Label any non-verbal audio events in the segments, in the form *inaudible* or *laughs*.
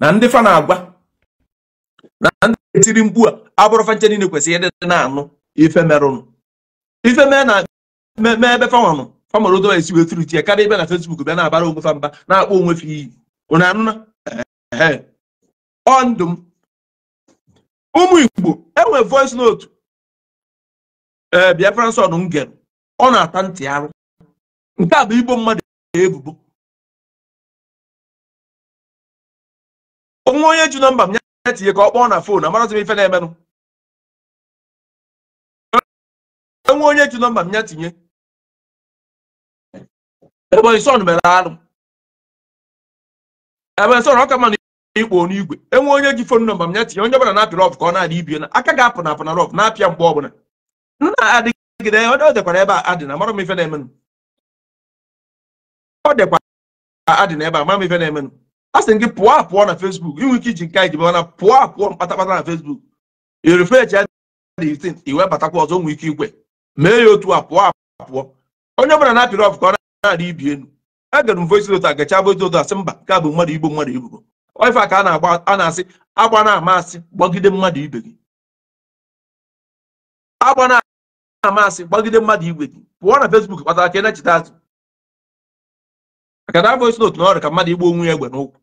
na ndị fa na-agwa na ndị etiri mkpu a abụrụfa nche niile kwesịrị ịdị na-anụ ife merụnụ ife mee na mee ebe fanwanụ famara odoba esi wee tiri tie karịa ibe na fesbuk bịa na-abara onwe fa mba na-akpọ onwe fa iyi ụnụ anụna ọ ndụ m ụmụ igbo enwe voice note ee eh, biafran son m ọ na-ata ntị arụ nke a bụ igbo mmadụ ebubo onwe onye ju na mba m ya tinye ka ọ kpọọ na fon amarazi m ife na-emenụ enwe onye ju nọmba m ya tinye Ebonyi mere alụ Ebonyi son ọka mana ikpo n'igwe enwe onye ji fon nọmba m ya tinye onye ọbụla na-apị rọf ka ọ na-adị ibie na aka ga-apụ na apụ na rọf na-apịa mgbe ọbụla na-adịgide ọ dekwara ebe a adị na amara m ife na-emenụ ọ dịkwa adị na ebe a mara m ife na-emenụ a sị gị pụọ apụọ na fesbuk inwe ike iji nke anyị jibe mana pụọ apụọ mkpatakpata na fesbuk irefechi ya na 18 iwe batakwa ọzọ nwee ike igwe mee ya otu a pụọ apụọ onye ọbụla na-apịrị ọfụ ọ na-adị ibi elu egere m voice note agacha gacha voice note a mba ka bụ mmadụ igbo mmadụ ibubo ife a ka a na-asị agba na-ama asị gbagide mmadụ ibe gị agba na-ama asị gbagide mmadụ igwe gị pụọ na fesbuk kpatara ka ị na-echeta azụ maka na voice note na ọrụ ka mmadụ igbo onwe ya egbe n'ụkwụ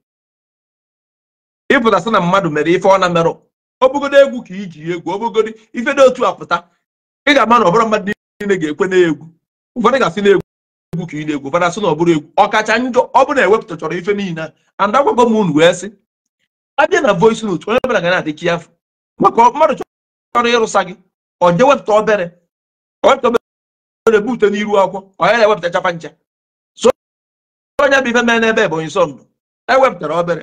ịpụta sị na mmadụ mere ife ọ na merụ obogodo egwu ka iji egwu obogodo ife dị otu apụta ị ga-ama na ọbụrụ mmadụ niile ga-ekwe n'egwu ụfọdụ ga-asị na egwu egwu ka ị na-egwu ụfọdụ asị na ọbụrụ egwu ọkacha njọ ọ bụ na ewepụtachọrọ ife niile anda gwagọ m unu wee sị abịa na voice n'otu onye ọbụla ga na-adị chiafụ maka mmadụ chọrọ ịrụsa gị ọ je wepụta obere wepụta obere bute n'iru akwụkwọ ọ ya na-ewepụta chapa ncha so onye bụ ife mee n'ebe Ebonyi sọ ndụ ewepụtara obere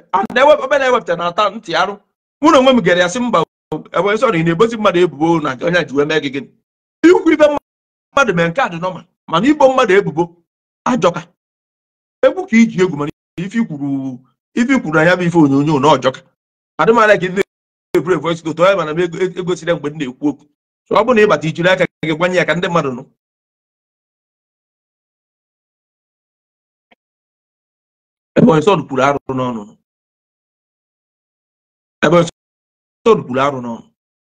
obere ewepụtara na-ata ntị arụ mụ na onwe m gere ya sị mba ị na-ebozi mmadụ ebubo na onye ji wee mee gị gịnị ikwu ibe mmadụ mee nke a dị nọma mana ibo mmadụ ebubo ajọka egwu ka iji egwu mana ife ikwuru na ya bụ ife onyonyo na ọjọka adị m ala ka ndị na-eburu voice note onye mana m egosila mgbe m na-ekwu okwu ọ bụrụ na ịbata ijiri aka gị gwanye ya ka ndị mmadụ nụ ebe Onsod kwuru arụ n'ọnụ ebe Onsod kwuru arụ n'ọnụ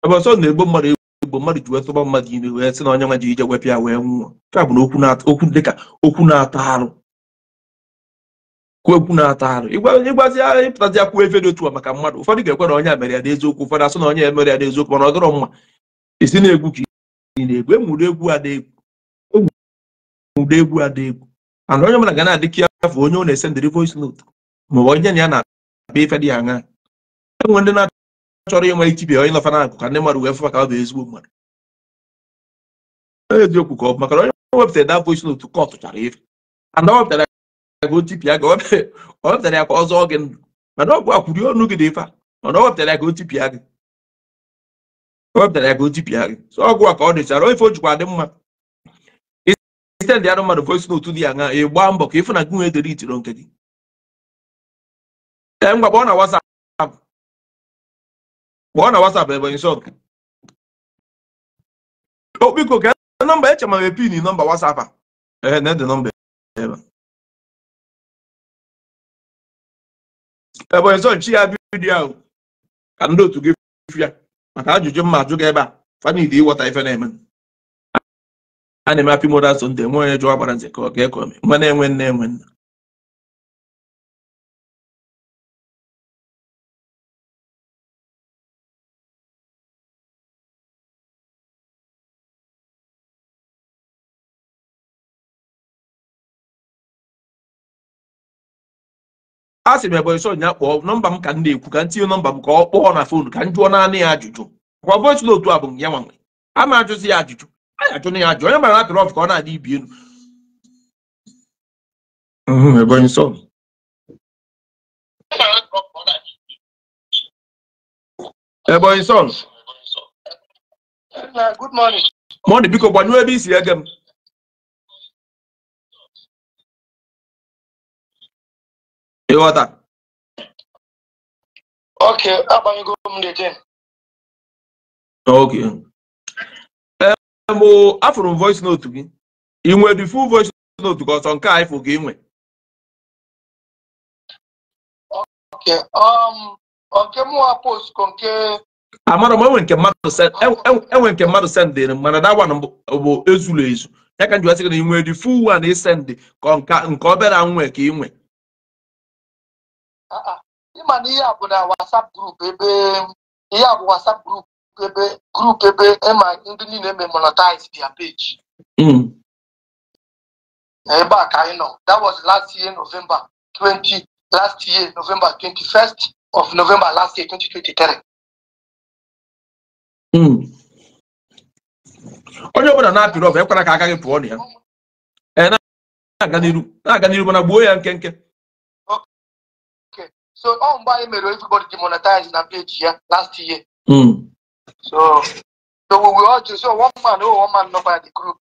ebe Onsod na-egbo mmadụ egbo mmadụ ji wetụba mmadụ ime wee sị na onye nwa ji ije wepịa wee nwụọ nke a bụ na okwu dịka okwu na-ata arụ kwuo okwu na-ata arụ ịgbazi ahịa ịpụtazi akwụ efe dị otu a maka mmadụ ụfọdụ ga-ekwe na onye mere ya n'eziokwu ụfọdụ asụ na onye mere ya n'eziokwu mana ọ mma isi na-egwu ka ị egwu egwu egwu and onye ọbụla ga na-adị kịafụ onye ọ na-esendịrị voice note maọbụ onye na ya na-akpa ife dị aṅa enwe ndị na-achọrọ ịnwe ichibia onye nọfa n'akụ ka ndị mmadụ wee fụ ọ bụ ezigbo mmadụ eziokwu ka ọ maka onye wepụtara da voice note ka ọ tụchara ife and ọ wepụtara ya ka ọ ya ka ọ zọọ gị ndụ mana ọgwụ akwụri ọnụ gị dị ife mana ọ ya ka o tipịa gị o ya ka o gị a ka ọ dịchara ife o jikwa adị mma extend arụ mmadụ ka o n'otu dị ya na ị gbaa mbọ ka ịfụ na gị nwee dere itiro nke gị ee ngwa kpọọ na WhatsApp kpọọ na WhatsApp Ebonyi Song okpiko ka nọmba eche ma pin nọmba WhatsApp a ee na ede nọmba ebe Ebonyi Song chi ya vidiyo ahụ ka ndị otu gị fụ ya maka ajụjụ mma ajụ gị ebe a fanidi ịghọta ife na-eme a na-eme hapi modas nde nwe onye jụọ gbara nze ka ọ ga-ekwe ome nwa na-enwe nne enwe nna a sị m ebonyi nya kpọọ nọmba m ka m na-ekwu ka m tinye nọmba m ka ọ kpọọ na fonu ka m jụọ naanị ya ajụjụ kwa voice otu a bụ ya nwanwe a ma ajụzi ya ajụjụ Hmm, a na ya ajụ onye mara apịrị ọfụ ka ọ na-adị ibi elu Ebonyi sọ Ebonyi sọ mọdụ biko gbanyụọ ebe isi ege m ịghọta ok agbanyego m dị ok m afụrụ m voice note gị ị nwere the full voice note gị ọsọ nke a ịfụ gị nwe um, amara m enwe nke mmadụ sendịrị m mana dawa bụ ezulu ezu ya ka m ji wasị gị na ị nwere the full one isendị ka nke obere nwe ka ị nwe ah, ah. ịma na ihe a bụ na WhatsApp group ebe ihe a bụ WhatsApp group ebe grup ebe ema ndị niile memonetize their page hmm. ebe a ka anyị nọ that was last year november 20 last year november 21st of november last year 2023 hmm. onye ọbụla na-apịrị ọbụ ekwara ka a gaghị pụọ na ya eh, na-aga n'iru na-aga n'iru mana gbuo ya nke nke so ọ mgbe anyị mere everybody demonetize na page ya last year. Hmm. So, so we will all to so one man, oh, one man, nobody group.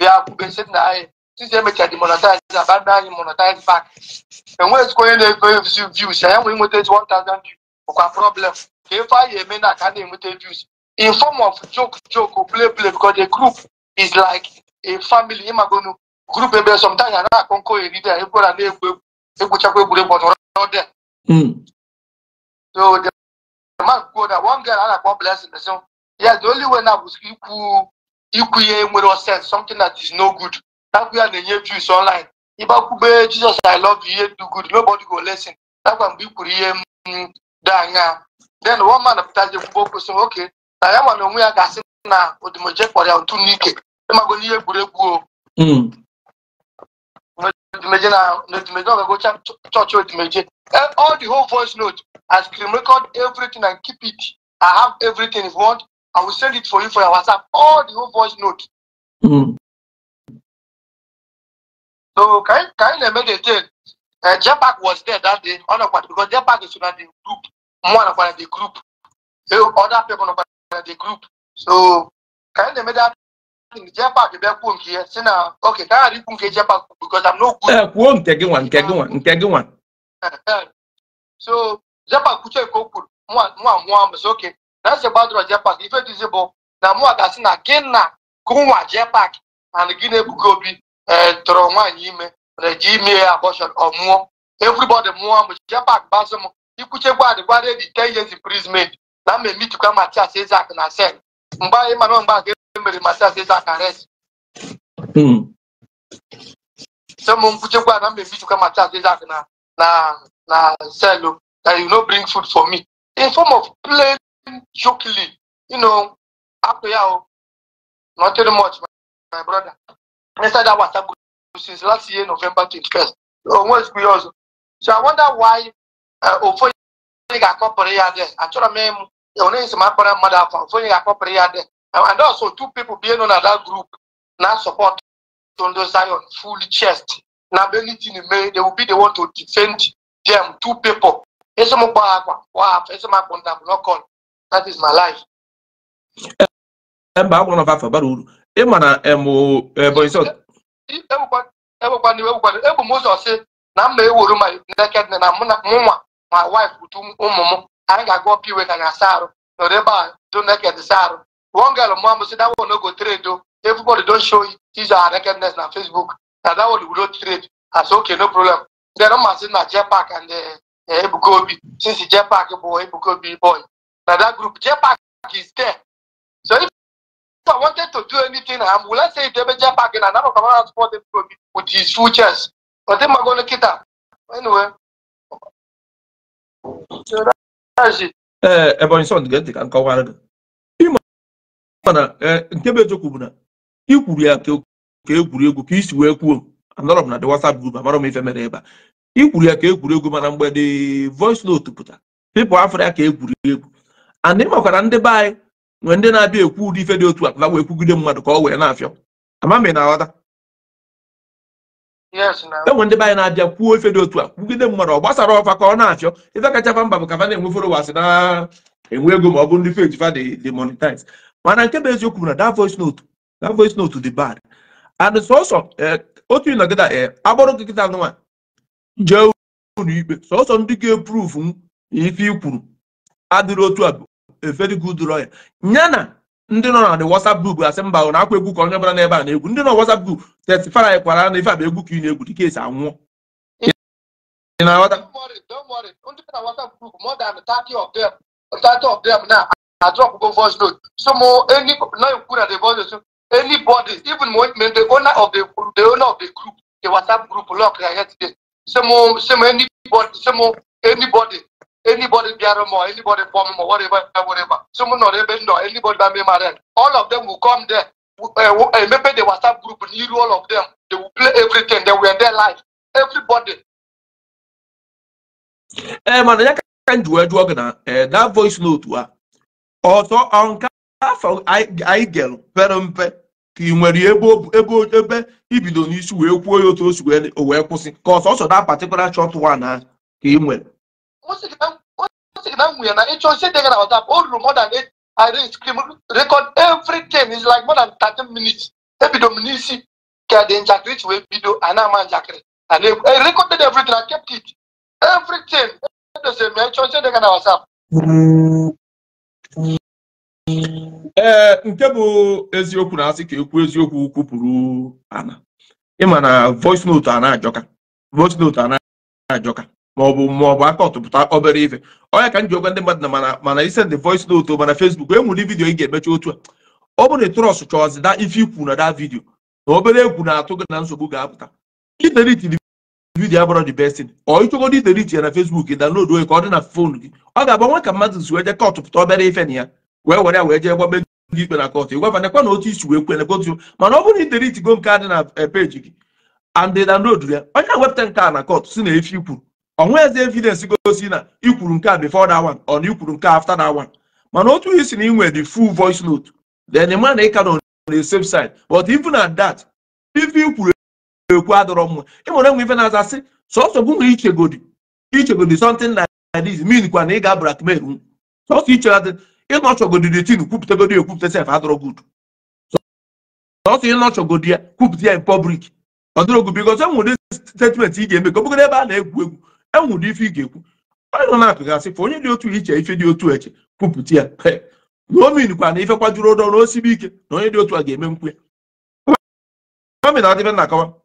We are basically now. Since they make a demonetize, abandon monetize back. And when it's going to go views, I am going to take one thousand views. Okay, problem. If I am in, I can't even take views. In form of joke, joke, or play, play, because the group is like a family. I'm going to group ebe sometimes I na konko eri there. People are na egwu, egwu chakwa egwu, but not there. So the man kwuo na one girl a na-akpọ blessing so yes the only way na bụ ikwu ikwu ihe nwere sense something that is no good nakwu ya na-enye views online ịbakwube Jesus I love you ihe do good nobody go listen nakwa mgbe i kwuru ihe m dị anya then one man pụtaje kwube okwu sị oke na ya ma na onwe ya ga-asị na odimoje kpọrọ ya ntu n'ike ịmago n'ihe egwuregwu o hmm. meje na note meje no go church all the whole voice note i screen record everything and keep it i have everything if you want i will send it for you for your whatsapp all the whole voice note. Mm. so kain kain eme dey tell uh, jepak was there that day ọnọkpata because jepak is una the group mwa ọnọkpata the group other people ọnọkpata the group so kain eme that jepak bịa kwuo nke ya si na oke ka ghara ikwu nke jepak because I'm no good. kwuo nke gị nwa nke gị nwa nke gị nwa. so jepak kwuchie ka o kwuru nwa nwa nwa mbụ so oke na ese gbadoro jepak ife dịzi bụ na mụwa ga-asị na gị na gụnwa jepak and gị na ebuga obi tụrụ nwaanyị ime mana ji ime ya abọshọn ọ mụọ everybody mụọ m jepak gbasị m ikwuche gwadị gwadị dị ten years imprisonment na mma emitikwa Matias Ezeaku na sel mgbe anyị mara mgbe mmerimata sasa akareti mm. so mumkuche kwa nambe vitu kama tatu sasa na na na selo that you no bring food for me in form of plain jokingly you know ya, yao nothing much my, brother inside that whatsapp group since last year november twenty-first almost three years so i wonder why ofonye ga-akọpụrụ ya dị achọrọ m ịmụ onye isi m akpọrọ mmadụ afọ ofonye ga-akọpụrụ ya dị and also two people being in na that group na support Tondo Zion full chest na be anything may they will be the one to defend them two people akwa that is my life mba agwụrụ na afa bara uru ị ma na egbekwana iwe gbekwana m ụzọ si na m na-ewuru ma neked na mụ wife ụmụ m ga asa arụ nọrọ ebe a do one girl mom say that one no go trade though everybody don show his her nakedness na facebook na that one we no trade i say okay no problem then ọma sị na jepak and eh, eh, ebuka obi since jepak eh, bụ ebuka obi boy na that group jepak is there so if i wanted to do anything am will i say idebe jepak na anabụ ka mara support ebuka with his full chest ọdị mmago na kịta anyway ee ebonyi sọ dị ka nkọwara gị mana eh, nke bụ eziokwu bụ na ikwuru ya ka egwuregwu ka isi wee kwuo anọrọ m na the WhatsApp group amara m ife mere ebe a ị ya ka egwuregwu mana mgbe dị voice note pụta pipụl afọ ya ka egwuregwu and ịmakwara ndị be anyị nwee ndị na-abịa ekwu ụdị ife dị otu a wee kwugide mmadụ ka ọ wee na-afịọ ama m ị na-aghọta enwe e ndị be anyị na-abịa kwuo ife dị otu a kwugide mmadụ ọ gbasara ọfa ka ọ na-afịọ ife kacha mba bụ ka fa na-enwe followers na-enwe ego ma ọ bụ ndị peji dị monetize mana nke bụ eziokwu na that voice note that voice note dị bad and sọsọ eh, otu ịnọgịda eh, agbụrụ nkịta kịta nwa jee ụlọ ikpe sọsọ ndị ga-epruvu ife i kwuru adịrị otu a very good lawyer ya na ndị nọ na the WhatsApp group asị mba na akwa egwu ka onye bụla n'ebe a na-egwu ndị nọ WhatsApp group testifara anyị kwara na ife abụ egwu ka ị na-egwu dịka esi anwụọ don't don't worry worry ị na-aghọta I drop go voice note. So more any now you put at the voice note. Anybody, even when the owner of the the owner of the group, the WhatsApp group, lock I head today. So, more, some anybody, some more anybody, anybody there more, anybody form more, whatever, whatever. Someone not even know anybody that may marry. All of them will come there. Uh, uh, maybe the WhatsApp group need all of them. They will play everything. They were their life. Everybody. Eh, man, I can't do it. That voice note, what? ọzọ nke afọ anyị gere pere mpe ka ị nwere ebe ebe ibido n'isi wee kwuo ya otu o wee kwụsị ka ọsọ ọsọ da patikụla chọt wan ka ị nwere nwunye na ịchọ ihe o ruru more than eight record everything is like more than 13 minutes ebido m n'isi ka dị njakịrị chi wee bido a ama njakịrị and I e recorded everything I kept it everything e m ịchọ e ee nke bụ eziokwu na-asị ka ekwu eziokwu kwupụrụ ana ịma na voice note a na-ajọka voice note a na-ajọka maọbụ maọbụ aka ọtụpụta obere ife onya ka m ji okwe ndị mmadụ na mana mana isend voice note mana Facebook enwere vidiyo ị ga-emecha otu a ọ bụrụ na trọs chọọzi da ife ikwu na da vidiyo na obere egwu na-atụ gị na nsogbu ga-apụta idelitiri vidiyo abụrọ the best thing ọ ịchọgodo iterich ya na Facebook download onye ka ọ dị na fon gị ọ ga-abụ nwa ka mmadụ si jee kọtụ pụta obere ife na ya wee were ya wee jee gwabe gị ikpe na kọtụ ịgwafanekwa na otu isi wee kwene kọtụ mana ọ bụrụ na iterich go nke a dị na eh, peji gị and download ya onye na-ewepụta nke a na kọtụ si na efi ikwuru nwe eze na ikwuru nke a ọ na ikwuru nke afta that mana otu na inwe the voice note ma na ịka na side but even ekwu adọrọ mma ịmụrụ enwe ife na-aza sị sọsọ bụ nwere ichegodi ichegodi sọntin like min kwa na ị ga blackmail m sọsọ ichegodi ịnọchọgodi the tin kwupụtagodi ekwupụta sef adọrọ gud. sọsọ ịnọchọgodi ya kwupụta ya in public ọ dịrọ good because enwere statement ị ga-eme ka ọ bụgodị ebe a na-egwu egwu enwere ife ị ga-ekwu onye nọ na-apụgasị fụ onye dị otu iche ife dị otu eche kwupụta ya na kwa na ife kwajuru ụdọ na osibe ike na onye dị otu a ga-eme nkwu ya omin adịbe na akawa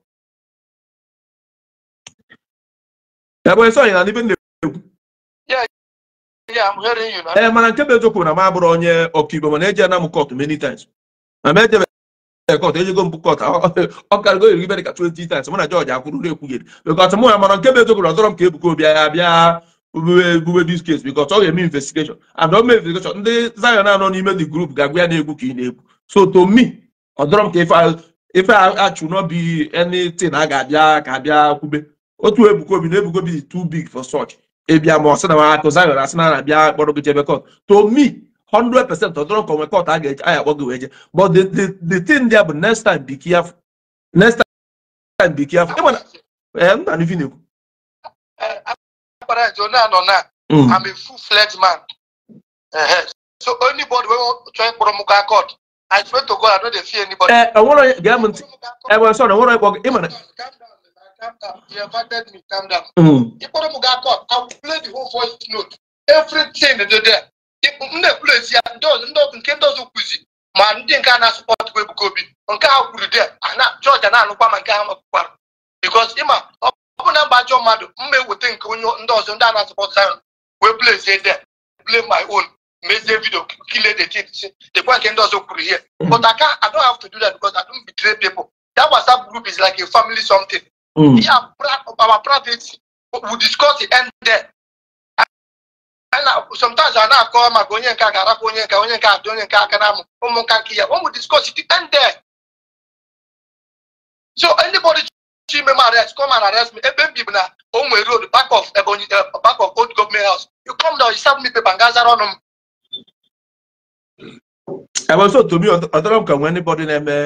ebe esi na n'ibe na-ekwu ee mana nke bụ eziokwu na m abụrụ onye Igbo, mana eji anam m kọt many times na m ejebe kọt ejigo m kọt ọ go iri ibere ka 20 times mụ akwụrụ na ekwugheri bịkọt mụ ya mana nke bụ na m ka ebuka obi ya bịa ebube dis case ọ eme investigation and ọ mee investigation ndị Zion anọ n'ime the group ga-agwa ya na-egwu ka ị na-egwu so to me ọzọrọ m ka ife achụ na anything a ga-abịa ka otu ebukobi na ebukobi Obi too big for such ịbịa ma ọsị na nwa akụ asị na gị jebe to me 100 percent ọdọrọ nke onwe kot a ga-eje anya akpọ gị je but the the thing there bụ next time be careful next time be careful ịma na eh, nna na-ekwu anọ na mm. I'm a full fledged man so anybody wey try onye eh, ntị eh, na calm down. He invited me, calm down. Mm. He put up a court. I will play the whole voice note. Everything is there. Ndị ekwulezi ya ndị ọzọ ndị ọzọ nke ndị ọzọ kwuzi ma ndị nke a na-asọpọtụ Ebuka Obi nke ha kwuru de ana George na-anụkwa ma nke ha nọkwara bikos ịma ọ bụ na mba ajọ mmadụ mma eweta nke onye ndị ọzọ ndị a na-asọpọtụ ahụ wee plezie there, play my own mezie vidio kile the thing si dekwa nke ndị ọzọ kwuru here. but I don't have to do that because I don't betray people that WhatsApp group is like a family something Mm. Me our privacy, we discuss the end there. sometimes I now call my onye nke a ga-arapụ onye nke onye nke dị onye nke aka na ụmụnka nke ya when we discuss it end there. So anybody chi ime m arrest come and arrest me ebe m bibu na onwe road back of Ebonyi eh, back of old government house you come down you serve me paper nga zara ọnụ m. Ebe nso Tobi ọ dọrọ m ka nwee anybody na-eme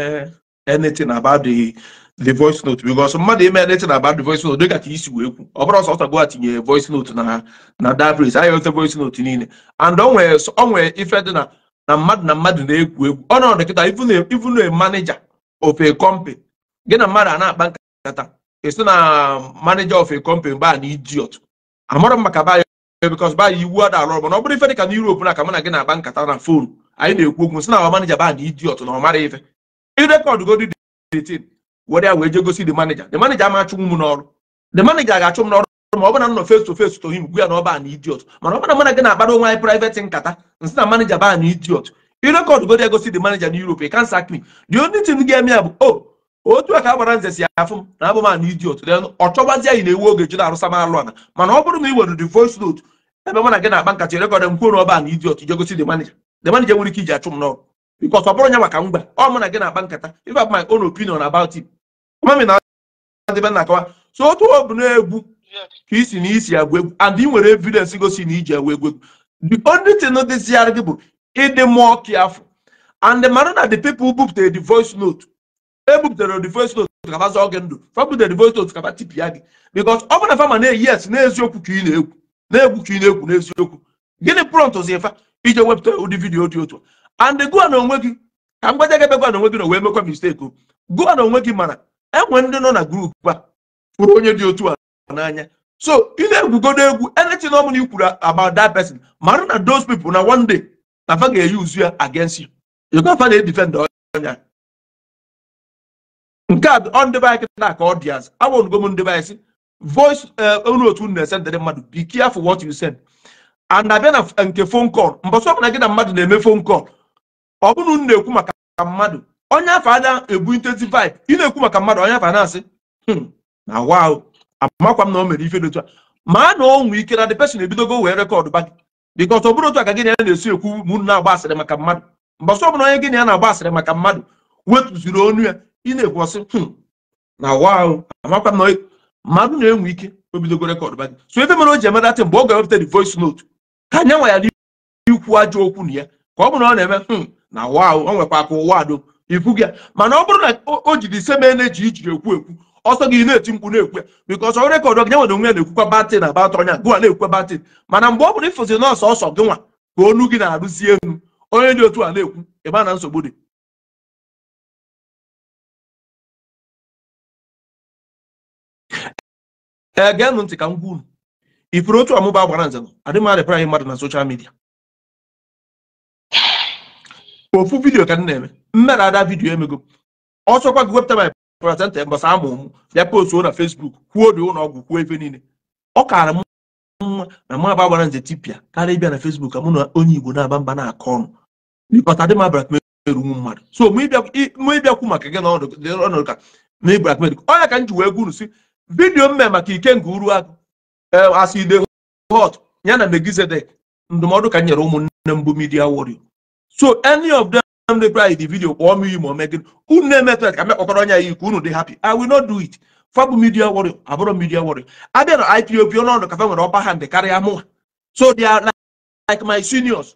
anything about the the voice note because mmadụ ime anything about the voice note dịka ka isi wee kwu ọ bụrụ ọsọ ọtago tinye voice note na na dabris anyị ote voice note niile and onwee ife dị na na mmadụ na mmadụ na-egwu egwu ọ nọrọ nkịta even a manager of a company gị na mmadụ a na-akpa nkata esi na manager of a company baa na idiot amarọ m maka baya because baya iwu ada alụ ọrụ mana ọ bụrụ ife dịka na Europe na aka mụ na gị na-akpa nkata na fonu anyị na-ekwu okwu si na ọ manager baa na idiot na ọ mara ife irekọdụ godi dị tin were ya wee jee gosi the manager the manager n'ọrụ the manager ga-achụ m n'ọrụ ma ọ bụrụ face to face to him gwu ya na ọba idiot mana ọ na mana gị na-akpara onwe anyị private nkata nsị na manager ba na idiot irekọdụ godi egosi the manager na Europe can sack me the only thing ga-eme ya bụ o oh, otu aka ka a gbara nze si na abụ ma ana idiot ọ chọgbazi anyị na-ewu oge jụna arụsa alụ ana mana ọ bụrụ na ị the voice ebe mana gị na-akpa nkata irekọdụ m kwuo the manager nwere ike m because ọ bụrụ nya maka mgba ọ mụ na gị na-akpa nkata if I my own opinion about it mami na adịbe na akawa so otu ọ bụ na-egwu ka isi na isi agwa egwu and ị nwere evidence gosi na iji agwa egwu egwu the only thing dịziara gị bụ ịdị mụọ kiafụ and the mara na the people bupụtara the voice note ebupụtara the voice note kaba zọọ gị ndụ fabutere the voice note kaba tipịa gị because ọ bụ na fama na-eyi yes n'eziokwu ka ị na-egwu na-egwu ka ị na-egwu n'eziokwu gịnị prọntụzi ife iji wepụta ụdị vidiyo dị otu and gụọ na onwe gị ka mgbe gị ebe gụọ na gị na wee mekwa mistake gụọ na onwe gị mana enwe ndị nọ na grupu a fụrụ onye dị otu a n'anya so ị na-egwugodo egwu anything na na ikwuru about that person mara na those people na one day na fa ga-eyuzu ya against you you go fa na-edefend ọnya nke a ọ ndebe anyị kịta ka ọ dị azụ awụnugo m ndebe anyị si voice unu eh, otu unu na-ese ndị mmadụ be careful what you send and abịa na nke phone call mbọsị ọbụla gị na mmadụ na-eme phone call ọ bụrụ na na-ekwu maka mmadụ onye afọ ada ebu intensifi ị na-ekwu maka mmadụ onye afọ na-asị hmm, na awa ahụ amakwa m na o mere ife otu a ma na ọ nwee ike na the person ebidogo wee rekọdụ bagị gị bikọs ọ bụrụ otu aka gị na ya na-esi ekwu m na-agba asịrị maka mmadụ Mgbasa ọ onye gịnị ya na-agba asịrị maka mmadụ wetuziri onu ya ị na-ekwu ọsị hmm, na awa ahụ amakwa m na mmadụ na-enwe ike obidogo bidogo rekọdụ ba so ebe mere o ji emedatị mgbe ọ ga-ewepụta the voice note ka anya nwa ya ikwu ajọ okwu na ya ka ọ bụrụ na ọ na-eme hmm, na wa o nwekwa aka ụwa do ifu gị mana ọ bụrụ na o jiri ise ma na-eji ijiri ekwu ekwu ọsọ gị na-eti mkpu na-ekwu bikọs ọrụ rekọdụ gị nyanwere onwe na-ekwukwa batịn na batị ọnya gụwa na-ekwukwa batịn mana mgbe ọ bụrụ ịfụzi nọọsụ ọsọ gị nwa ka onu gị na-arụzi enu onye dị otu a na-ekwu ebe na nsogbu dị ee geenụ ntị ka m gwuru ifuru otu ọmụba agwara nze adịmadị praị mmadụ na soshal midia ofu vidiyo ka m na-eme mme ada vidiyo emego ọ gị wepụta my placenta mbọsị amụ m bịa postuo na Facebook kwuo dị ụlọ ọgwụ kwuo ebe niile ọ kaara m nwa na mụ agba gbara nze tipịa karịa ịbịa na Facebook ka mụ na onye Igbo na-aba mba na-akọ ọnụ bịkọta dị m abrakmerunwu mmadụ so mụ ịbịakwu maka gị n'ọnọdụ ka na ibrakmer ọnya ka m ji wee gwuru si vidiyo m mee maka Ikenga Uruagụ eh, aside e hot ya na Megizedek ndụmọdụ ka m nyere ụmụnne mbụ midia Warrior so any of them ndị pra the video kpọọ m iyi ma ome gịnị unu na-emetụ ya ka mekpọkọrọ anya ya iku unu dị happy i will not do it fabụ media warrior abụrụ media warrior abịa na ipop ọdụ kafe nwere ọba hand ndị karịa mụnwa so they are like my seniors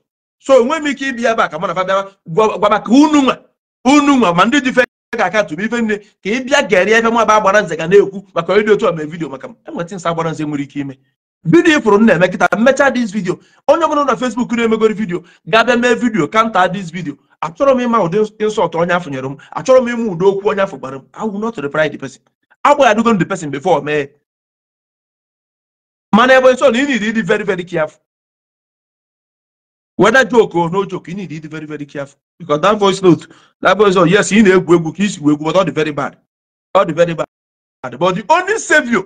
so enwe m ike ịbịa ebe a ka mụ na fabịa gwaba ka unu nwa unu nwa ma ndị dife ga akatụ ife nne ka ị bịa gerie ebe mụ agbara nze ga na-ekwu maka ịdị otu ọma vidio maka enwetị nsa agbara nze nwere ike ime vidiyo ifụrụ m na-eme kịta dis vidiyo onye ọbụla na fesbuk na-emegoro vidiyo ga mee vidiyo kanta dis vidiyo achọrọ m ịma ụdị insọlt onye afụ nyere m achọrọ m ịma ụdị okwu onye afụ gbara m I will not reply the person agbaghadugo the person before mee mana ebe nso na ị need ịdị very very careful whether joke or no joke ị need ịdị very very careful because that voice note that voice note oh, yes ị na-egwu egwu ka isi egwu but ọ dị very bad ọ dị very bad but the only savior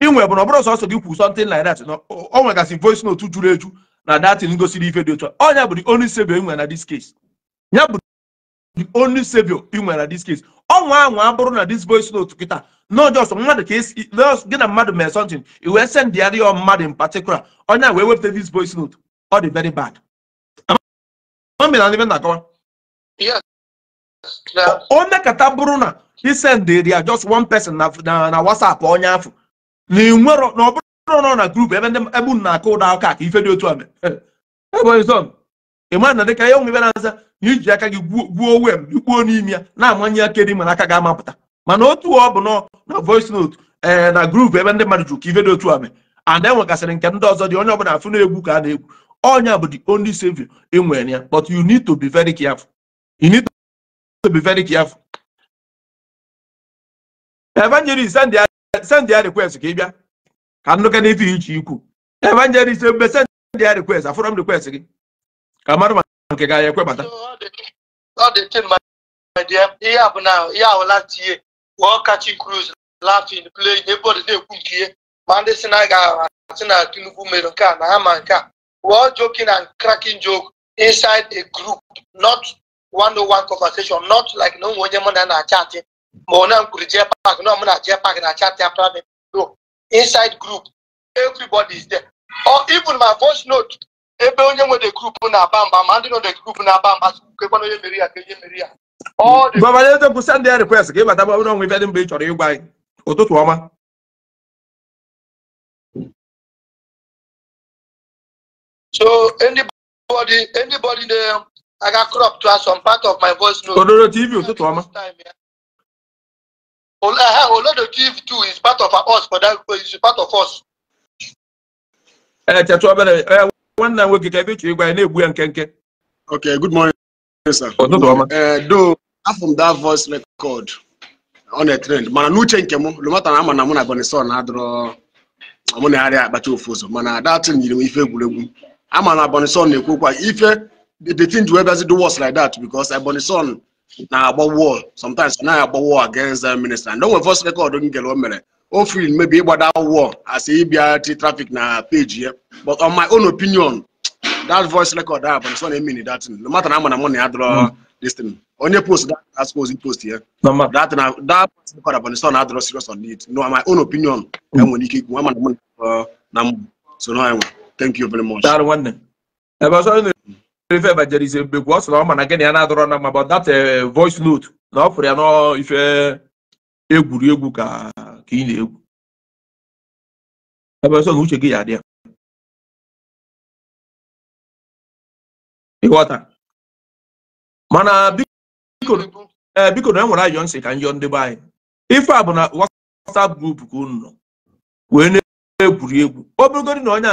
inwe bụ na ọ bụrụ sọsọ gị kwu something like that na o nwegasị voice note juru eju na datin gosiri ife dị otu ọnya bụ the only savior inwe na this case ya bụ the only savior inwe na this case ọnwa anwa abụrụ na this voice note kịta no just mmadụ ka esi gị na mmadụ mee something i wee send ya rịọ mmadụ in particular onye wee wepụta this voice note ọ dị very bad na-akọwa onye kata bụrụ na isend ya just one person na na WhatsApp onye afọ na ịnwero na ọ bụrụ nọ na grupu ebe ndị ebe unu na-akụ ụda aka ka ife dị otu a *laughs* ị mara na dịka ihe onwe ebe na-aza na iji aka gị gwuo wem gbuo n'ime ya na-amanye aka dị mana aka ga-amapụta mana otu ọ bụ nọ na voice note ee eh, na grupu ebe ndị mmadụ jụrụ ka ife dị otu a mee and enwegasịrị nke ndị ọzọ dị onye ọbụla afụ na-egwu ka a na-egwu ọnya bụ the only savior ị e nwere ya but you need to be very careful you need to be very careful evangelist ndị send ya request ka ị bịa ka nnụka n'ife iche ikwu evangelist mgbe send ya request afụrọ m request gị ka ma nke ga ekwebata ihe a bụ na ihe awụla tinye wụọ kachi cruz na-ekwu ihe ma ndị si na ga-asị na Tinubu nke a na ha ma nke a wụọ joking and cracking joke inside a group not one-on-one conversation not like na onye mụ na na-achatị ma ọ na m kwuru jee park na m na jee park na chat ya private no inside group everybody is there or even my voice note ebe onye nwe the group na-aba mba ma ndị nọ the group na-aba mba kekwana onye mere ya ka onye mere ya gọvanọ eze bụ send request ka ịbata bụrụ ọnwa ibe dị mgbe ị chọrọ ịgwa anyị ụtụtụ ọma so anybody anybody na-aga crop to some part of my voice note odoro tv ụtụtụ ọma Olorado give too is part of us for that is part of us. Echetụ eh, obere nwanne nwoke ka ebe chiri gwa na-egbu ya nke nke. Ok, good morning sir. Ụtụtụ oh, ọma. Eh, do afọ m that voice record on a trend mana n'uche nke m lomata na ama na mụ na Bonison na-adụrọ mụ na-arịa akpacha ofu ụzọ mana datin nyiri m ife egwuregwu ama na Bonison na-ekwu okwu ife the thing ji wee bịazi do worse like that because Bonison Now about war sometimes now about war against that minister and onwe first record don't get one minute. o free maybe that war as ịbịa traffic na page here. but on my own opinion that voice record ahụ bụ nsọ a minute. that no matter how much money I draw, hmm. this thing onye post that I suppose post here. No matter uh, that voice record abụ nsọ na adọrọ serious on it no my own opinion hmm. I'm ike ikwu ama na mụ so na thank you very much. ebe ọsọ ife evangelism Mbekwu ọ sị na ọ ma na gịnị ya na-adọrọ na mma bụ that eh, voice note na ọ fụrụ ya n'ife egwuregwu ka ka ị na-egwu ebe ọsọ na uche gị ya adị ịghọta mana biko eh, na enwere ayọ nsị ka njọ ndị be anyị ife a bụ na WhatsApp group ka unu nọ wee na-egwuri egwu obegodi na onye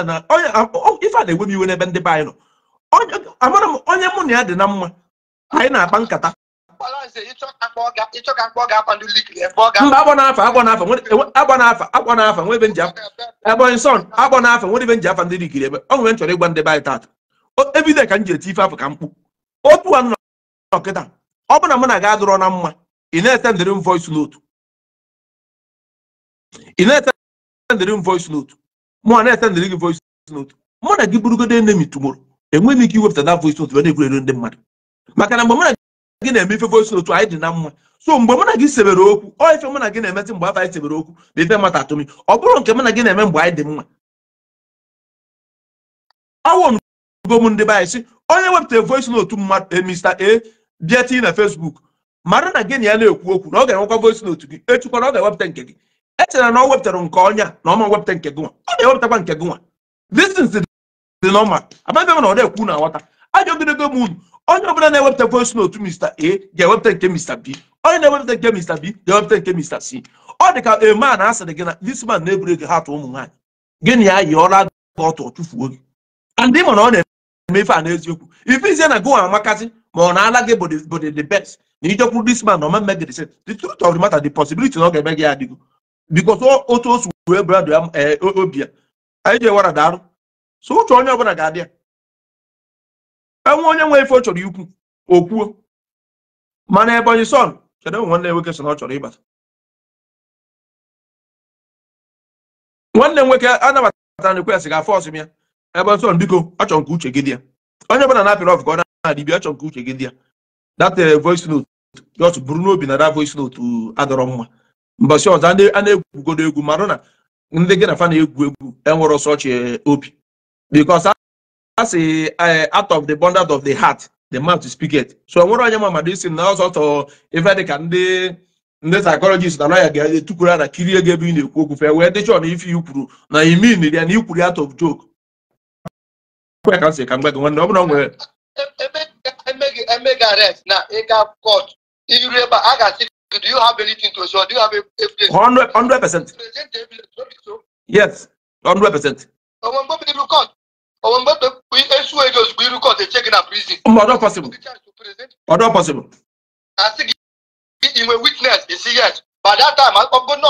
ife a na-enwe m iwe n'ebe ndị be anyị nọ amara m onye mụ na ya dị na mma anyị na-akpa nkata mba agbọ n'afa agbọ afa agbọ n'afa agbọ n'afa nwere ebe nji agbọghị son agbọ n'afa nwere ebe nji afọ ndị likiri ebe ọ nwere nchọrọ chọrọ ịgwa ndị be anyị taata ka m ji eti ife afọ ka m kpu otu a nọ ọ bụ na mụ na na mma ị na m na m gị mụ gị enemi tumoro enweghị ike iwepụta na voice note na-egwuregwu ndị mmadụ maka na mgbe mụ na gị na-eme ife voice note anyị dị na mma so mgbe mụ na gị sebere okwu ọ ife mụ na gị na-emezi mgbe afọ anyị sebere okwu bụ ife mata atụmi ọ bụrụ nke mụ na gị na-eme mgbe anyị dị mma awụnugom ndị be anyị si onye wepụta voice note mmadụ eh, Mr A bịa na Facebook mara na gị na ya na-ekwu okwu na ọ ga-enwekwa voice note gị echukwa na ọ ga-ewepụta nke gị echere na ọ wepụtara nke ọnya na ọma wepụta nke gị nwa ọ ga-ewepụtakwa nke gịnwa nwa dị nọma abịabịa na ọ na-ekwu na aghọta ajọ ogologo m unu onye ọbụla na-ewepụta voice note Mr. A ga-ewepụta nke Mr. B onye na-ewepụta nke Mr. B ga-ewepụta nke Mr. C ọ dị ka ema na asịrị gị na this man na-eburu ego hatụ ụmụ nwaanyị gịnị ya yi ọla aga ọtụ ọchụfuo gị ndị mana ọ na-eme ife a n'eziokwu ife izie na gụwa amakazi ma ọ na-ala gị body the best na ijekwuru this man na ọmemme gị the truth of the matter the possibility na ọ ga-eme gị adịgo because otu um, eh, o si wee brad obi ya anyị ji ewara daalụ so uche onye ọbụla ga-adị ya enwe onye nwe ife ọ chọrọ ikwu okwuo mana Ebonyi son kedu nwanne nwoke so na ọ chọrọ ịbata nwanne nwoke anabatara na ekwesị ga fọs m ya Ebonyi son biko achọ nke uche gị dị ya onye ọbụla na-apịrị ọfụ ka ọ na-adịbịa achọ nke uche gị dị ya that uh, voice note just buru n'obi na that voice note uh, adọrọ mma mbọsị ọzọ a na-egwugodo egwu marụ na ndị gị na fa na-egwu egwu enwere ọsọ ọchị uh, obi because that's a, a eh, out of the of the heart the mouth to speak so nwere onye ma mmadụ isi na ọzọtọ ife dịka ndị psychologist na lawyer ga a kirie gị ebe ị na-ekwu okwu fee wee dịchọ na ife ikwuru na ya out of joke kwe ka m si ka m gwa gị nwanne ọ nwere emega arrest e, e, e, na ịga court iru ebe a ga-asị do you have anything to show do onwe mgbe esu eji ozugbo iru kọt eche gị na prizin a sị gị inwe witness yes by that time ọgo nọ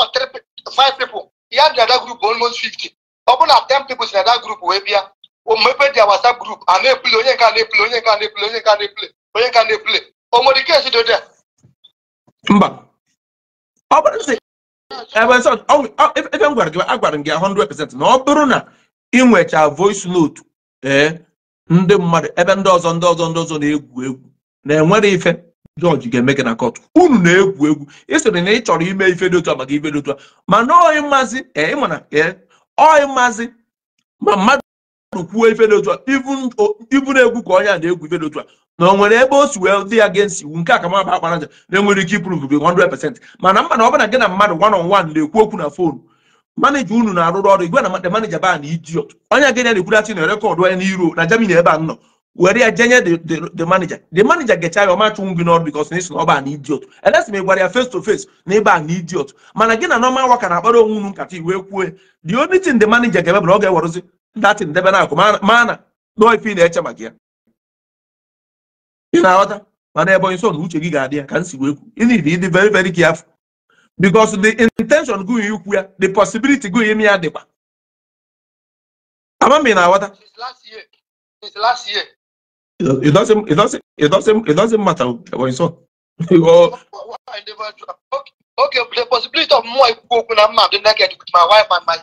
five people ya dị ada almost 50 ọ na 10 people si that wee bịa omepe dị WhatsApp group, oh, a oh, they play. onye nke onye nke a play. onye nke a onye nke na-epule o nwere ike esi dode m gị agwara m 100% na ọ bụrụ na inwecha voice note ee eh, ndị mmadụ ebe ndị ọzọ ndị ọzọ ndị ọzọ na-egwu egwu na-enwere ife jọji ga-eme gị na kọtụ unu na-egwu egwu isoro na ị chọrọ ime ife dị otu a maka ife dị otu a mana oyi mmazi eh, ịmana eh, oyi mmazi ma mmadụ kwuo ife dị otu a ibu na-egwu ka onye a na-egwu ife dị otu a na o nwere ebe o si wee dị ya against iwu nke aka maba akpara nja na enwere ike ipruvu gị 100 mana mmadụ ọ bụla gị na mmadụ one on one na-ekwu okwu na fonu manager unu na-arụrụ ọrụ igwe na manager ba na idiot onye genya na-ekwudachi na rekọdụ onye n'iro na Germany ebe a nọ were ya jenye the manager the manager gecha ya ọmachụnwụ gị n'ọrụ because na isi na ọ na idiot elesi ma ị gwara ya face to face na ịba na idiot mana gị na normal worker na-akpara onwe unu nkata iwe kwue the only thing the manager ga-eme bụ na ọ ga-ewerụzi datin debe na akụ ife na-eche maka ya ị na-aghọta mana ebe onye so na uche gị ga-adị ya ka m si wee kwu ị na-iri ịdị very very careful because the intention gụ ikwu ya the possibility gụ ime ya dịkwa amami na awata. since last year aghọta it doesn't, it doesn't, it doesn't, it doesn't matter what it's on. *laughs* ok the possibility of more people when I'm married, like with my wife and my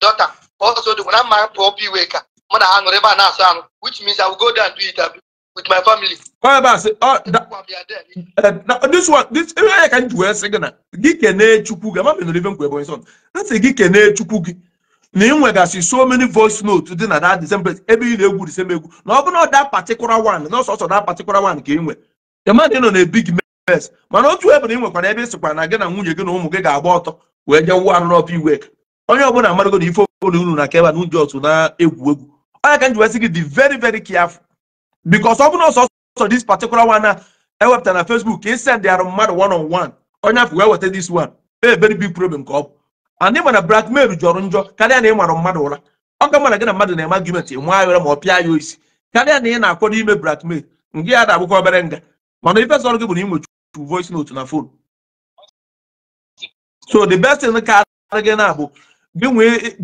daughter. Also, so when I'm married, for people, when I hang around, which means I will go there and do interview. with my family. Why about say, oh, that, uh, eh, now, this one, this, even eh, I can do a second. Gikene Chupuga, I'm not living with my son. That's a Gikene Chupugi. na ịnwegasị so many voice notes dị na that same ebe ị na-egwu the same egwu na ọ bụrụ that particular na ọsọsọ that particular one ka ị nwe demand nọ na big mess mana otu ebe na ị ebe ịsịkwa gị na nwunye gị na ụmụ gị ga-agba ọtọ wee jee iwe onye ọbụla na na egwu egwu very very careful because ọbụna ọsọ ọsọ ọsọsọ this particular one na ewepụta na Facebook e send arụ mmadụ one on one onye afọ wee weta this one a big problem ka ọ bụ and ị mana blackmail jọrọ njọ karịa na ị mara mmadụ ụra ọ ka mana gị na mmadụ na-eme argument ị nwa ayọrọ ma ọ pịa ya isi karịa na ị na-akwado ime blackmail nke ya na-abụkwa obere nga mana ife sọrọ gị bụ na ị nwechukwu voice note na phone so the best thing ka ara gị na bụ gị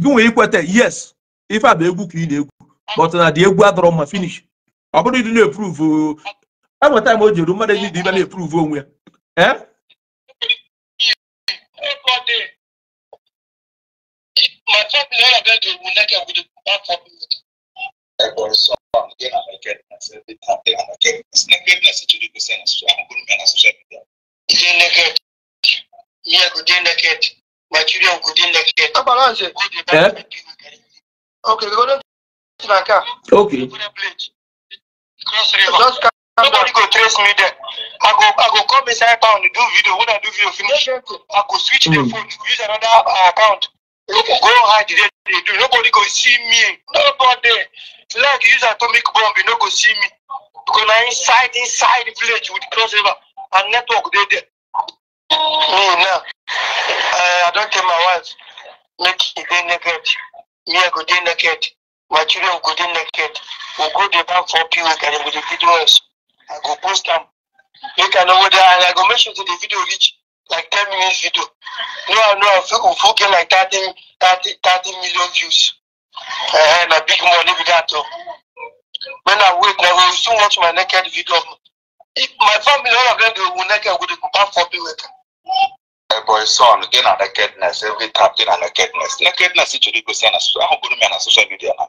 nwee ikweta yes ife a bụ egwu ka ị na-egwu but na dị egwu adọrọ mma finish ọ bụrụ ịdị na-epuruvu enweta m o jere mmadụ eji dị ibe na-epuruvu onwe ya Okay. Okay. Just come Nobody go trace me there. I go I go come inside town do video. When I do video finish, I go switch mm. the hmm. phone, use another uh, account. Okay. Go hide there. They do. Nobody go see me. Nobody. Like use atomic bomb, you no go see me. Because I inside inside village with Cross River and network they there. Me now. Uh, I don't tell my wife. Make it naked. Me I go naked my children go dey naked we go dey back for pos and dem go dey video us i go post am make i know whether and i go make sure say the video reach like ten minutes video no i know i go full get like thirty thirty thirty million views uh, na big money be that o oh. when i wait na go still watch my naked video if my family all of them dey go naked we dey go back for pos. Eh, boy son gị na nakedness every time gị na nakedness nakedness chọrọ igosi na ahụ bụrụ m ya na social media now.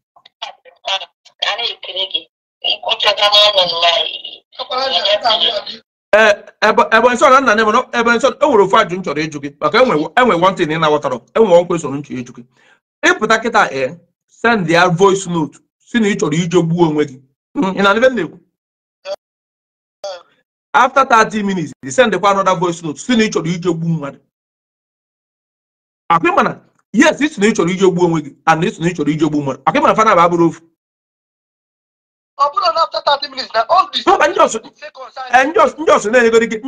ebe nsọ na nna na ebe nsọ enwere ofu ajụ m chọrọ ịjụ gị maka enwe wọntị na ị na-aghọtara enwe nkwe soro nchọ ịjụ gị ịpụta kịta ee send ya voice note si na ị chọrọ ije gbuo onwe gị ị na ebe m na-ekwu after 30 minutes ị send kwa another voice note si na ị chọrọ ije gbuo mmadụ akpị mana yes ị na ị chọrọ ije gbuo onwe gị and ị na ị chọrọ ije gbuo mmadụ akpị fana bụ abụrụ ofu ndị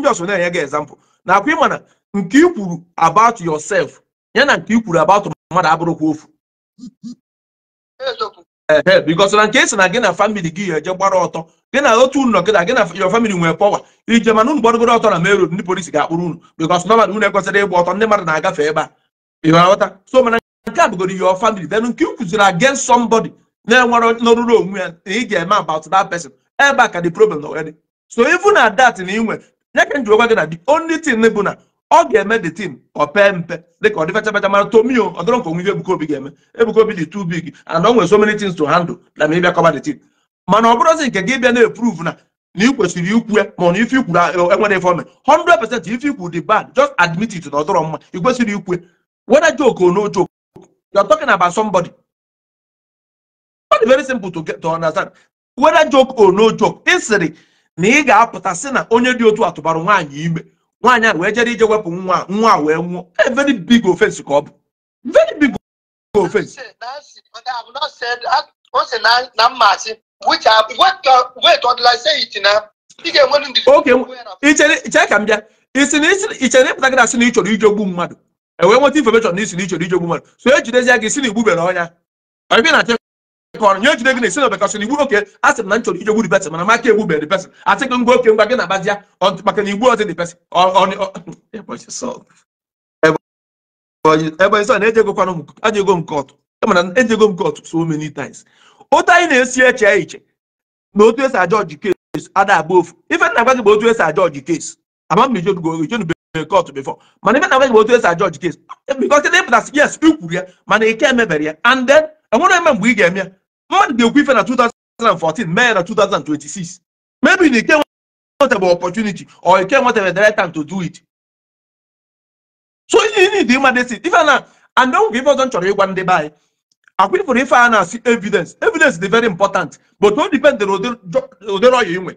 ọsọ na-enye gị example na akwa ịma na ịmana nke i kwuru about yosef ya na nke i kwuru about mmadụ abụrụkwa ofu ee because na nke esi na gị na famili gị ya eje gbara ọtọ gị na otu unu gị na gị na your family nwee power ije mana unu gbadogoro ọtọ na main road ndị polisi ga-akpụrụ unu because normal unu ekwesịrị ịgba ọtọ ndị mmadụ na-agafe ebe a ịghọta so mana nke a bụgoro your family then nke i kwuziri against somebody na-enwere n'oruru onwe ya na ị ga-eme about that person ebe a ka the problem nọ already so even na that na inwe ya ka njikwa gị na the only thing bụ na ọ ga-eme the team ọ pee mpe dịka ọ dị fecha fecha mara tomio ọdọrọ nke onwe Ebuka Obi ga-eme Ebuka Obi dị too big and o nwere so many things to handle na ma bịa kọba the team mana ọ bụrụzi nke gị bịa na-eprove na na ị kwesịrị ikwu ya ma na ife ikwuru enwere ifeome 100% ife ikwu dị bad just admit it na ọdọrọ mma ị kwesịrị ikwu whether joke or no joke you're dị very simple to get to understand whether joke or no joke ị na ị ga-apụta si na onye dị otu atụbara nwaanyị ime nwaanyị a wee jere ije wepụ nwa nwa wee nwụọ very big offense ka ọ bụ very big offense oke ka m bịa ị ịpụta gị na sị na ị chọrọ ije ogbu mmadụ e nweta information na isi na ị ije ogbu mmadụ so e gị si na igbubere ọnya kọrọ nye ejide gị na esi na bekasị na igbu oke a sị na nchọrọ chọrọ ije mana maka egbu bere pesin asị gị ngwa oke ngwa gị na ya maka na igbu ọzọ dị pesin ebonyi sọ na-eje ego kwanụ aja ego mana ego so many times otu anyị na-esi eche iche na otu esi aja kes ada agba ofu ife nna gwa gị bụ otu esi aja ọji kes ama ijedugo kọtụ bifọ. mana ife na otu esi aja kes yes ya mana ike emebere ya and then eme mgbe ị eme mmadụ ga-ekwu ife na 2014 mee na 2026 maybe na ike nwetebe opportunity or ike nwetebe the right time to do it so you mma ịma desi ife na and ọgwụ ife ọzọ chọrọ ịgwa ndị be anyị akwụfụrụ ife a na-asị evidence evidence dị very important but o depend na ụdịrị ọya inwe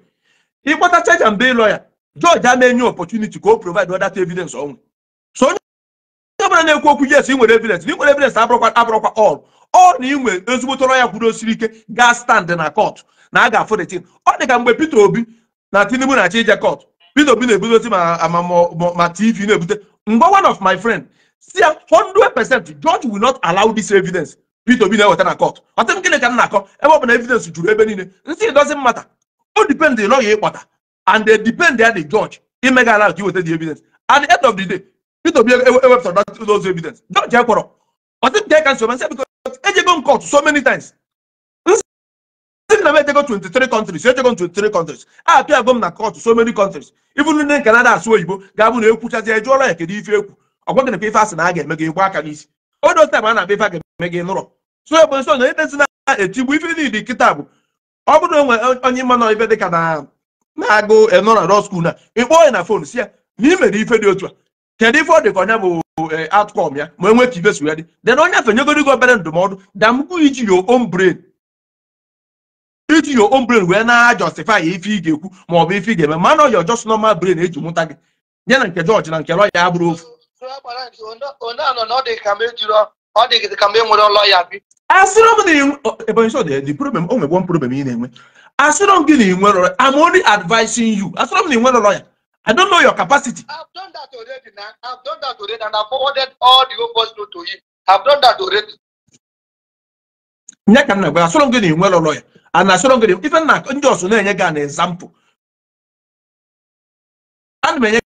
ịkpọta church and bail lawyer George amenye opportunity ka o provide other evidence onwe so onye ọbụla na-ekwu okwu yes ị nwere evidence na ị nwere evidence abụrụkwa abụrụkwa all ọ na inwe ezigbo tọrọ ya osiri ike gaa stand na kọtụ na a ga-afụ detin ọ dị ka mgbe Peter Obi na Tinubu na-achọ ije kọtụ Peter Obi na-ebudosi ebute ma TV na-ebute mgbe one of my friend si ya percent George will not allow this evidence Peter Obi na-eweta na kọtụ ọtị m gịnị ka m na-akọ ebe ọ bụ na evidence juru ebe niile nsị doesn't matter o depend na ọya ịkpọta and they depend at the judge imega allow ka iweta the evidence at the end of the day Peter Obi ewepụtara e, e those evidence judge ekpọrọ ọtị m ka nsọ ma nsogbu nsị ejegom ejego m court so many times nsị na m ejego 23 countries ejegom m 23 countries apịago m na court so many countries even ndị nke na-ada asụ oyibo ga-abụ na ekwuchazi ejụọla ya kedu ife ekwu ọgwa gị na ife asị na a ga-eme gị gba aka n'isi odo time a na-abịa ife a ga-eme gị nụrọ so ebe nso na idezi na-etigbu ife niile kịta bụ ọ bụrụ na onwe onye mma na dị ka na na-agụ enọra law school na ịkpọọ ya na fon si ya na ị ife dị otu a kedu ife ọ dị ka ọnya bụ e, outcome ya ma enwe ka ibe so ya dị then onye afenyegoro gị obere ndụmọdụ da damgbu iji your own iji your own wee na ya ife ị ga-ekwu ma ọ bụ ife ị ga-eme mana ọ ya just normal brain eji mụta gị nye na nke jọjị na nke lọya ya bụrụ ofu asịrọ m gị na ị nwere I'm only advising you asịrọ m na ị nwere lọya I don't know your capacity. I've done that already, man. I've done that already, and I've forwarded all the opposite to him. I've done that already. nye ka m na-agwa asọrọ gị na-enwe lụlọ ya a na-asọrọ gị ife na ndị ọsụ na-enye gị an ezampụ ana m enye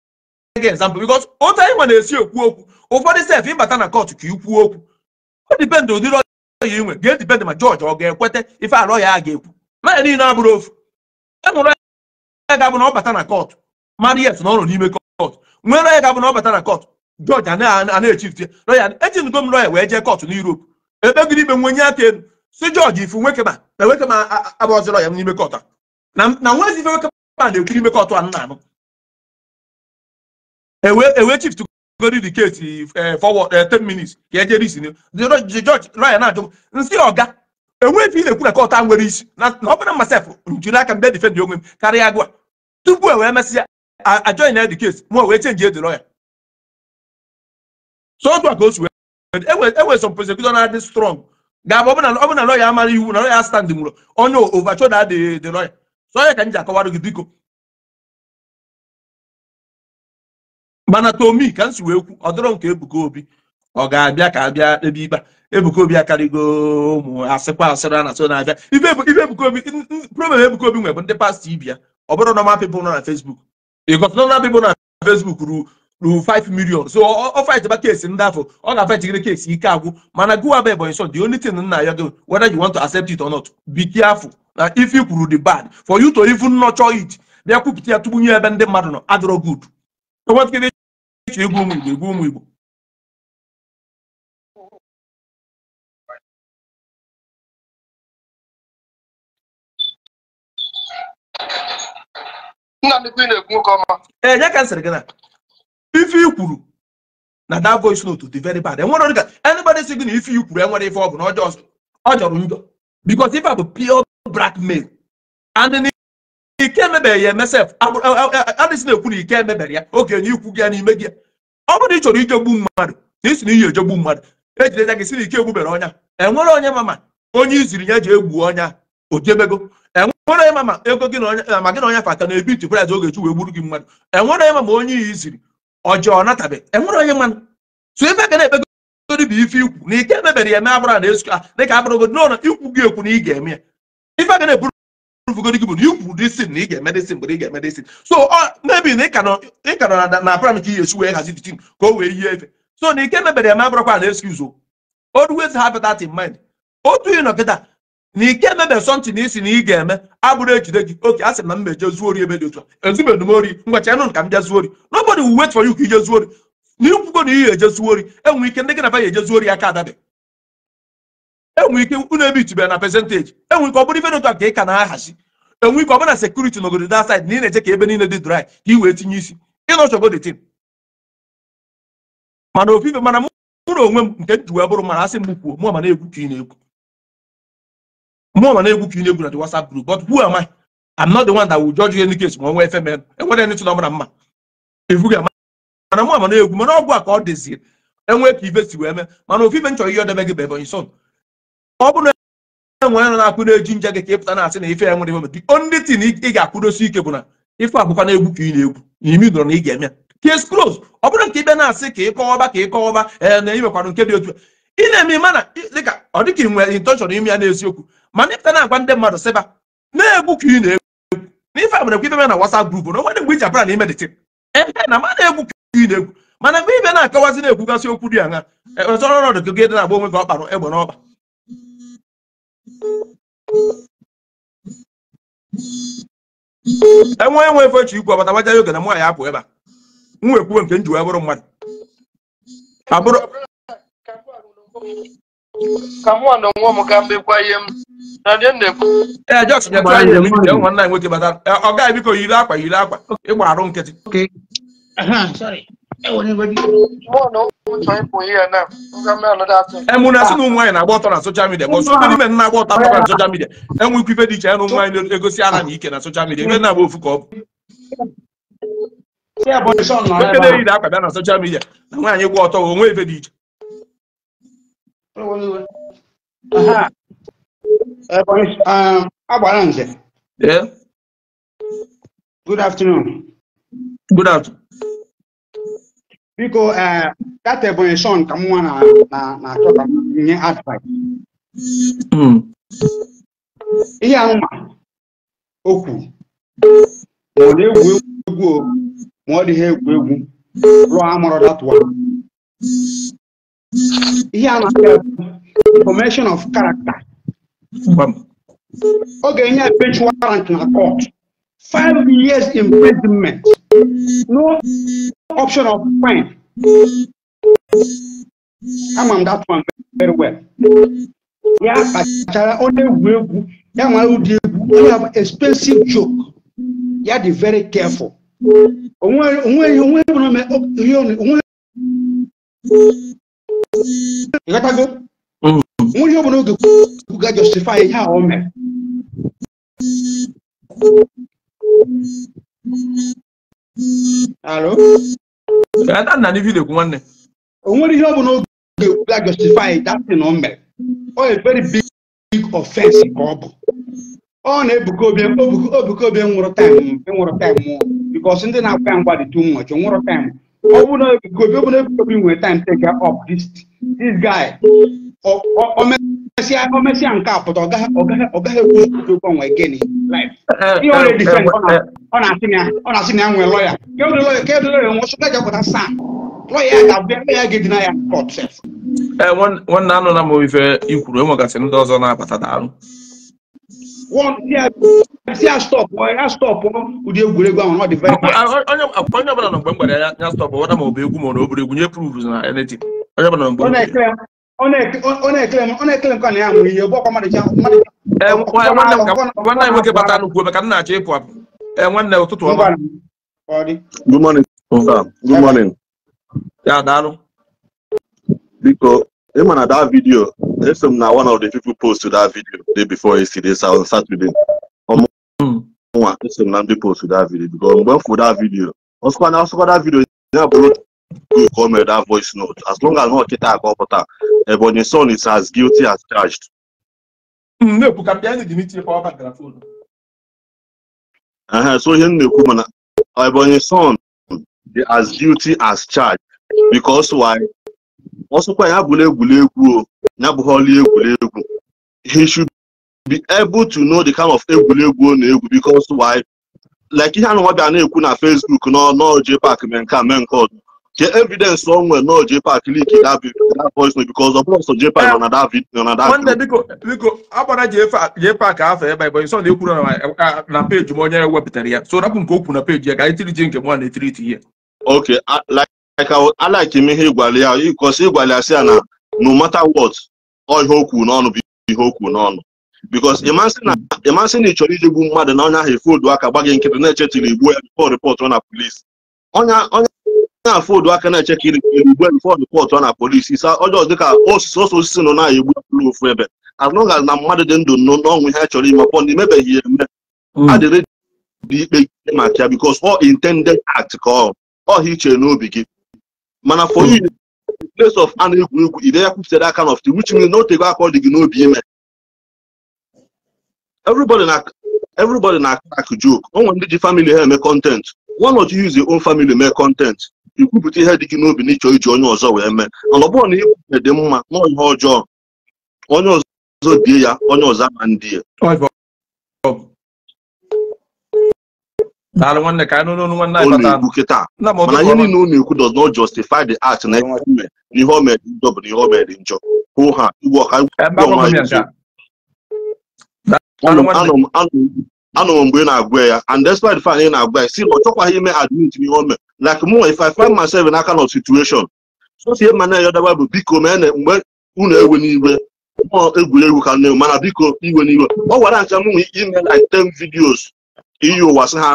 gị ezampụ bikos otu anyị nwe na-esi ekwu okwu ụfọdụ sef ịbata na kọtụ ka ikwuo okwu O dipendị ụdịrị ọya inwe ga-edipendị ma jọji ọ ga-ekweta ife alọ ya a ga-ekwu na ya niile abụrụ ofu e nwụrụ ya ga-abụ na ọ bata na kọtụ mariet na ọrụ n'ime kọt nwee lọya ga-abụ na ọ bata na kọt jọji ana-echifte lọya ejingo m lọya wee jee kọt n'Europe ebe gịrị ikpe nwe nye aka elu si jọji ifu nwekema na nwekema n'ime kọt a na nwezi ife nwekema na-ekwu n'ime kọt a nna anụ ewee e chift gori the case eh, forward 10 eh, minutes ka ejere isi jọji lọya na-ajụ ọga enwe ife ị na-ekwu na kọt a nwere isi na ọ bụrụ masef njiri aka mbe difendị onwe m karịa agụ tupu e wee mesịa I, I joined the case mo wee change the lawyer so otu a ka o si wee some na-adị strong ga-abụ ọ bụ na lawyer amara iwu na lawyer stand nwụrụ onye overture da the the lawyer so ka m ji akọwara gị biko mana tomi ka ọ dịrọ nke Ebuka Obi ọ ga-abịa ka abịa ebe ikpe Ebuka Obi ụmụ asịkwa asịrị a na Ebuka Obi problem Ebuka Obi bụ ndị pastọ ibi ọ bụrụ normal people nọ na Facebook because normal people na Facebook ru ru 5 million so ọ fight ba case ndị afọ ọ na fight gịrị case ike agwụ mana gụwa bụ so the only thing nna ya do whether you want to accept it or not be careful na if you kwuru the bad for you to even nurture it bịa kwupụta ya tụgbunye ebe ndị mmadụ nọ adịrọ good egwu ụmụ igbo egwu ụmụ igbo ee eh, ya ka m sịrị gị na ife i kwuru na that voice note dị very bad enwere onye ka anybody sị gị na ife i kwuru enwere ife ọ bụ na ọ jọrọ njọ because ife a bụ pure blackmail and na ike emebeghị ya emesef adịsị na-ekwu na ike emebere ya oge enye ikwu gị ya n'ime gị ọ bụrụ ị chọrọ ijegbu mmadụ na isi na iyi ejegbu mmadụ ejide ya gị si na ike egbubere ọnya enwere onye mama onye iziri ya ji egbu ọnya o nwere ịma ma ego gị na eh, ma gị na onye fa aka na-ebiti price oge chi wee gburu gị mmadụ enwere ịma ma onye iyi ziri ọjọọ natabe enwere onye mmanụ so ife ka na-ekpegodi bụ ife ikwu na ike emebere ya eme na esuka dịka n'ụlọ ikwu gị ekwu na ị ga-eme ya ife ga na-eburu gị bụ na ikwu disin na ị ga-eme disin mgbe ị ga-eme disin so mebi na ịka nọ na plan wee ka o wee yie so na ike emebere ya abụrụkwa na o otu nọ kịta na ike emebe something na isi na ị ga-eme abụrụ ejide gị oke a sị na mmeje zuo ori ebe dị otu a ezubedụ m ori ngwacha nụ ka m bịa zuo ori nobody will wait for you ka ije zuo na ikwugo na ihe eje enwe ike ndị gị na ba ya eje zuo ori aka adabe enwe ike unu ebe itubere na percentage enwe ike ọ bụrụ ife dị a ka ị ka na-ahazi enwe ike ọ na sekuriti n'obodo da side na ị na-eche ka ebe niile dị dry ka ị wee tinye isi chọgo the tin mana ofufe mana mụrụ onwe m nke m ji bụrụ mana asị m kwuo mụ ma na-ekwu ka ị na egwu mụ ma na-egwu ka ị na-egwu na the WhatsApp group but who am I? I'm not the one that will judge you any case ma nwa efe mere enwere ndị tụrụ ọbụla mma evughị ama mana mụ ama na-egwu mana ọgwụ a ka ọ dịzie enwee ka ife si wee mee mana ofu ife m chọrọ ihe ọdebe gị bụ Ebonyi son ọ na enwere na-akwụ na-eji nje gị ka na-asị na ife nwere the only thing ị ga-akwụdosi ike bụ na ife abụkwa na-egwu ka ị na-egwu e case ọ bụrụ nke asị ka ị ka ị eh, nke dị otu ị na-eme ịma na dịka ọ dịka ị nwere intention ime ya n'eziokwu ma ịpụta na-agwa ndị mmadụ sịba na-egwu ka ị na-egwu na ife agbara ekwe na WhatsApp group na dị mgbe iji abara na imedite ebe na ma na-egwu ka ị na-egwu mana mgbe ibe na-akọwazi na-ekwugasị okwu dị aṅa e, e, ọrụ ọrụ dị gị na-agba onwe gị ọkpara egbe n'ọkpa enwe enwe efe chi ikwu ọbata gbaja oge na nwa ya apụ ebe a m wee nke m ji bụrụ mmadụ ka nwa mbekwa ihe m na ee bata ọ gaghị biko yiri akwa yiri akwa ịgba arụ nkịtị e na-asị ụmụ nwaanyị na-agba ọtọ na soshal midia bụ ndị men na-agba ọtọ agbakwa na soshal midia enwe ikwu ife dị iche ya na ụmụ nwaanyị na-egosi aha na ike na soshal midia ebe na-agba ofu ka bụ akwa bịa na soshal midia na nwaanyị gba ọtọ onwe ife iche Eh, um, gbara nze good afternoon good afternoon biko eh, that Ebonyi son ka nwa na nye advice hmm. ihe anwa okwu ma na-egwu egwu ma ọ dịghị egwu egwu rụọ amụrụ one ihe formation of character oge nye bench warrant in a court five years imprisonment no option of fine I'm on that one very well Yeah, kpachara ọ na-egwu egwu ya nwere ụdị egwu expensive joke ya dị very careful ịghọtago mm. nwunye ọ bụla oge ga justify ihe a o mere alo o nwere ihe ọ bụla oge ga justify that thing o mere ọ very big big offense ka ọ bụ ọ na-ebuka obi obuka obi nwụrụ taịm nwụrụ taịm because ndị na-akpa ya mgba dị too much nwụrụ taịm ọ bụrụ na ebuka obi ọ na ebuka obi nwere taịm take up this this guy ọmẹsí ọmẹsí ànká àpọtọ ọgá ọgá ọgá ewu ọdún ọwọn ẹgẹ ni life he already defend ọna ọna asi ni ọna asi ni anwẹ lọya kéwòn lọya kéwòn lọya wọn sọgbà jẹ kọta sàn lọya àbẹ lọya gẹ dina ya e e court sef. ẹ wọn wọn nanu na mo ife ikwuru enwe gasị ndị ọzọ na-abata daalụ. wọn si a stop ya stop ụdị egwuregwu ahụ ọ dị very. Ah, ah, onye ọbụla nọ mgbe mgbere ya stop ọ na ma ọ bụ egwu ma ọ na obere egwu nye prove na anything nwanne anyị nwoke bata nnukwu maka nna achọ ịpụ apụ nwanne ụtụtụ ọma good morning good morning ya daalụ biko ị ma na that video eso m na one of the people post to that video day before yesterday so on saturday ọmụnwa hmm. eso m na ndị post to that video because mgbe m fụ that video ọsụkwa na ọsụkwa that video ya bụrụ nke o mere that voice note as long as akọpụta Ebonyi eh, son is as guilty as charged. Hmm, uh-huh, so ihe m na-ekwu mana Ebonyi son dị as guilty as charged because why ọsọkwa ya bụla egwuregwu o e he should be able to know the kind of e na e because why like ihe na-ekwu na Facebook n'ọjị pak mee nke a ke evidence o nwere na Jpac that voice note because ọ bụrụ sọ Jpac nọ na that video na that video. biko biko agbara Jpac afọ ebe a ịbụ na ekwuru na onye wepụtara ya so rapụ nke okwu na page ya ga anyị tiriji nke m na-etiriti ya. ok like alike m ihe ịgwale ya because ịgwale ya na no matter what ọ ihe okwu n'ọnụ bụ ihe okwu n'ọnụ because ịmasị na ịchọrọ iji gbu mmadụ na onye ahụ efu odu aka gbaghị nkịtị na-echetiri igbu ya na police onye na-afụ odu aka na-eche ka iri igbe fọdụ pọtụ ọ na polisi isa ọjọọ dịka osisi ọsọ osisi nọ na egbu ụlọ ofu ebe as long na mmadụ dị ndụ n'ọnwụ ihe chọrọ ime pọ na imebeghị ya eme hmm. adịrị dị ikpe ikpe maka ya because all intended act ka ọ ọha iche n'obi gị mana for hmm. you place of an egwu egwu ide ya kwupụtara aka n ft which na otego aka ọ dị gị n'obi ime everybody na everybody na akụ joke o nwere ndị ji family ha eme content why not you use your own family make content ikwupụta ihe dị gị n'obi na ịchọ iji onye ọzọ wee mee mana na ihe dị mma na ihe ọjọọ onye ọzọ die ya onye ọzọ ama ndị ya na-ekwu kịta mana ihe niile unu ekwu does not justify the act na ihe o mere njọ bụ na ihe o mere njọ hụ ha igwe ọha anọ m anọrọ mgbe ị na-agwa ya and despite the fact ị na-agwa ya si na ọ chọkwaghị ime admit n'ihe o mere like mụ if I find myself in that kind of situation so sie ma na-eyọdaba bụ biko mee na mgbe unu ewe n'iwe mụọ egwuregwu ka nne mana biko iwe n'iwe ọ gwara ncha mụnwe ime like ten videos iyi ụwa sị ha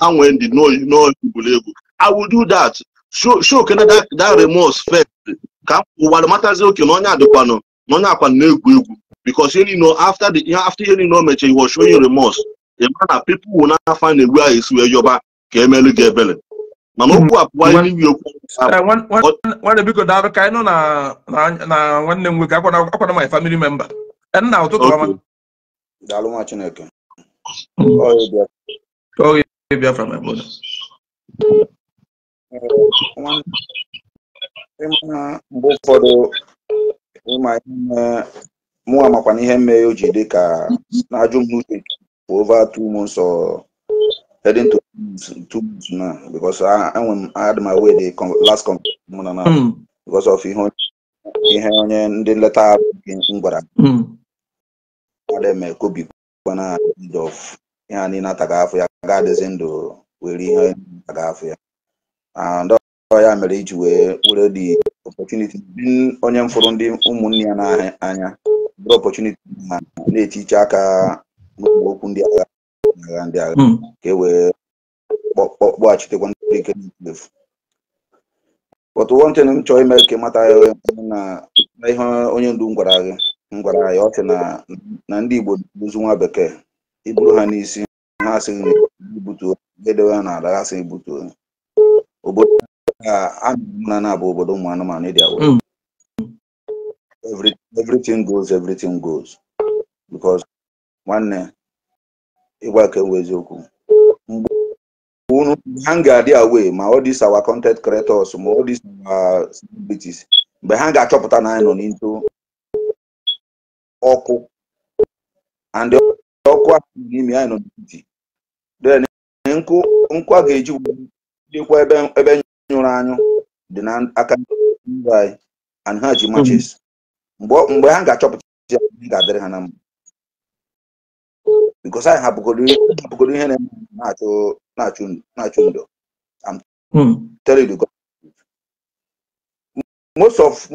ha nwee ndị n'egwuregwu I will do that show kene that remorse first ka m ụwa matazi oke na onye adịkwanụ na onye akwa na-egwu egwu because you know after the after you know meche he was showing remorse a man that people will not find a way is where yoba ka emelu na ebele mana okwu apụwa iwu okwu nwanne biko daalụ ka anyị nọ na na nwanne m nwoke akwana my family member nna ụtụtụ ọma chineke my brother uh, mụ amakwa n'ihe mee o ji dị ka na-ajụ m n'uche for over two months or heading to two months now because i m had my way the last conference mụ na na hmm. because of ihe ihe onye ndị nleta m gwara hmm. eme kobi kwana end of ihe a niile ataga afọ ya ga adịzi ndụ were ihe ataga afọ ya and ya mere iji wee were the opportunity onye m fụrụ ndị ụmụnne ya n'anya bụrụ ọpọchuniti ma na-etiche aka n'ụmụ okwu ndị agha agha ndị agha hmm. ka e wee kpọghachitekwa ndị ike n'efu but one thing m chọrọ ime ka mata na ihe onye ndu gwara gị m gwara anyị ọ sị na ndị igbo duzu nwa bekee iburu ha n'isi ha asịghị ibutu edewe ha n'ala ha sị ibutu obodo a na-abụ obodo ụmụ anụmanụ ịdị e awa every, everything goes everything goes because nwanne eh, ịgwa ka ewu eziokwu mgbe unu ha ga-adị away ma all these our content creators ma all these our celebrities mgbe ha ga-achọpụta na anyị nọ n'into ọkụ and ọkụ n'ime anyị nọ n'etiti then nkụ nkụ a ga-eji jekwa ebe nyụrụ anyụ dị n'aka ndị anyị and ha ji matches mgbe mgbe ha ga-achọpụta ya ga-adịrị ha na mma because anyị hapụgoro ihe na-achụ na ndụ hmm.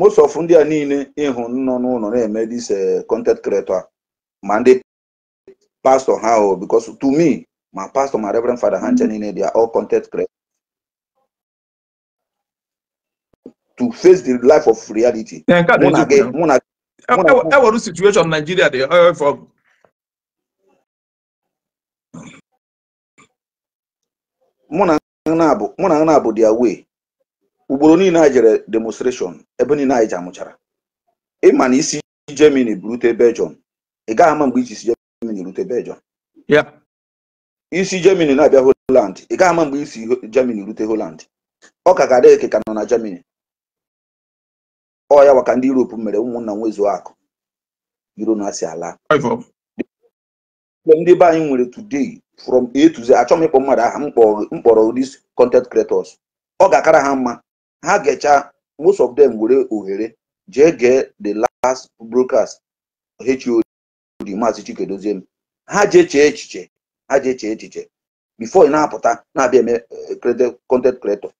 most of ndị a niile ịhụ nọ n'ụlọ na-eme this eh, content creator ma ndị pastor ha o because to me ma pastor ma reverend father ha nche hmm. niile they are all content creator to face the life of reality. ewere situation Nigeria dey oil from mụ na na abụ their way ugboro niile anyị jere demonstration ebe niile anyị ji amụchara ịma na isi Germany rute Belgium ị gaghị ama mgbe iji si Germany rute Belgium isi Germany na-abịa Holland ị gaghị ama mgbe isi Germany rute Holland ọ ka ga nọ na Germany ọ ya maka ndị Europe mere ụmụnna nwezuo akụ iro na asị ala ndị be anyị nwere today from A to Z achọ m ịkpọ mmadụ aha m kpọrọ these content creators ọ ga-akara ha mma ha ga most of them were ohere jee gee the last broadcast HOD maazi Chikedozie ha jee chee echiche ha jee chee echiche before ị na-apụta na-abịa eme eh, content creator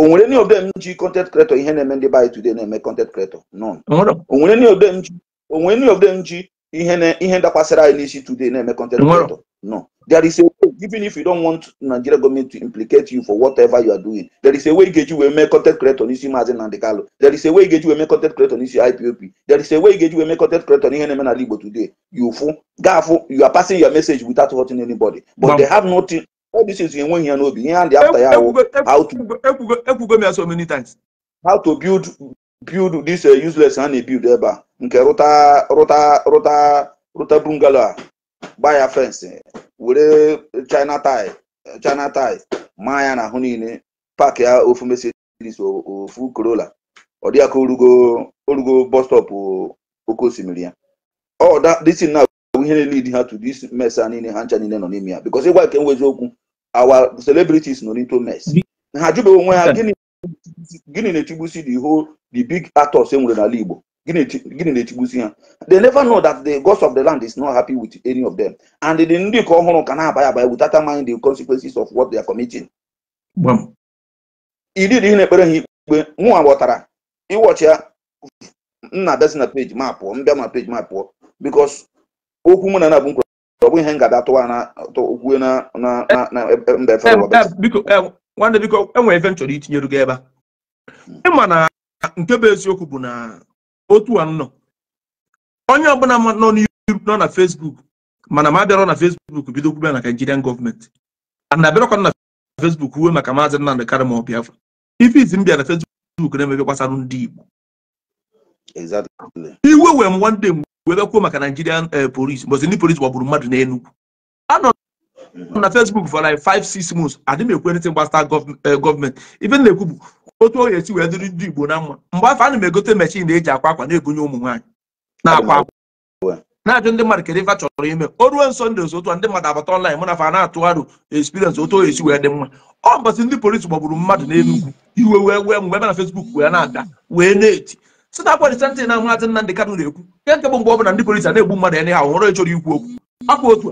onwere any of them ji content creator ihe na-eme ndị baanyị today na-eme content creator none onwere any of them ji any of them ji ihe na ihe ndakwasịrị anyị n'isi today na-eme content creator no there is a way even if you don't want Nigeria government to implicate you for whatever you are doing there is a way Igeji wee mee content creator n'isi Maazị Nnamdi Kanu there is a way Igeji wee mee content creator n'isi IPOP. there is a way Igeji wee mee content creator n'ihe na-eme n'ala Igbo today you fụ gafụ you are passing your message without hurting anybody but they have nothing all these ya n'obi ihe a ya ekwugo m ya so many how to build build this uh, useless a build ebe a nke ruta rụta rụta bungalow ah. a fence eh. were eh, china tie eh, china tie maa ya n'ahụ niile pak ya ofu Mercedes ofu Corolla ọ dịghị orugo osimiri ya ọ oh, ihe na-elid ha to this mess a niile ha ncha niile nọ n'ime ya because ịgwa nke nwezi okwu our celebrities nọ n'ito mess ha jụbeghị onwe ha gịnị na-echigbusi the whole the big actors e nwere n'ala Igbo gịnị na-echigbusi ha they never know that the gods of the land is not happy with any of them and the ndị ka ọhụrụ ka na-abanye abanye without mind the consequences of what they are committing idid ihe na-ekpere ha ikpe nwa ghọtara ịwọchi ya nna besi na ma pụọ mbịa ma peji ma pụọ because okwu mụ na na bụ nkwuru ọ bụ ihe ngada tụwa na okwu na na na mba efe nwanne biko enwere efe m chọrọ itinyere gị ebe a hmm. ịma na nke bụ eziokwu bụ na otu a nọ onye ọbụla nọ nọ na Facebook mana ma abịara na Facebook bido kwube na Nigerian gọọmenti ana abịarakwa na Facebook uwe maka maazị Nnamdị Karị ma ọ Biafra ife izi m bịa na Facebook na-emebe gbasara ndị Igbo iwe wee m nwanne m webe kwuo maka Nigerian police mbọsị ndị police gbagburu mmadụ n'Enugu anọ na Facebook for like five six months adị m ekwe ntị gbasara gọọmenti ife na-ekwu bụ otu oge esi wee dịrị ndị Igbo na mma mgbe afọ ana m egote mechin na-eji akwa akwa na-ebunye ụmụ nwaanyị na-akwa akwa na-ajụ ndị mmadụ kedu ife chọrọ ime o ruo nso ndị otu ndị mmadụ abata online mụ na fa na-atụgharụ experience otu oge esi wee dị mma ọ mbọsị ndị polisi gbagburu mmadụ n'Enugu iwe wee wee mgbe na Facebook wee na-ada wee na-eti si na akwa disentị na Maazị Nnamdị Kanụ na-ekwu nke nke bụ mgbe ọ na ndị polisi na-egbu mmadụ ya n'ihe ọhụrụ ịchọrọ ikwu okwu akwa otu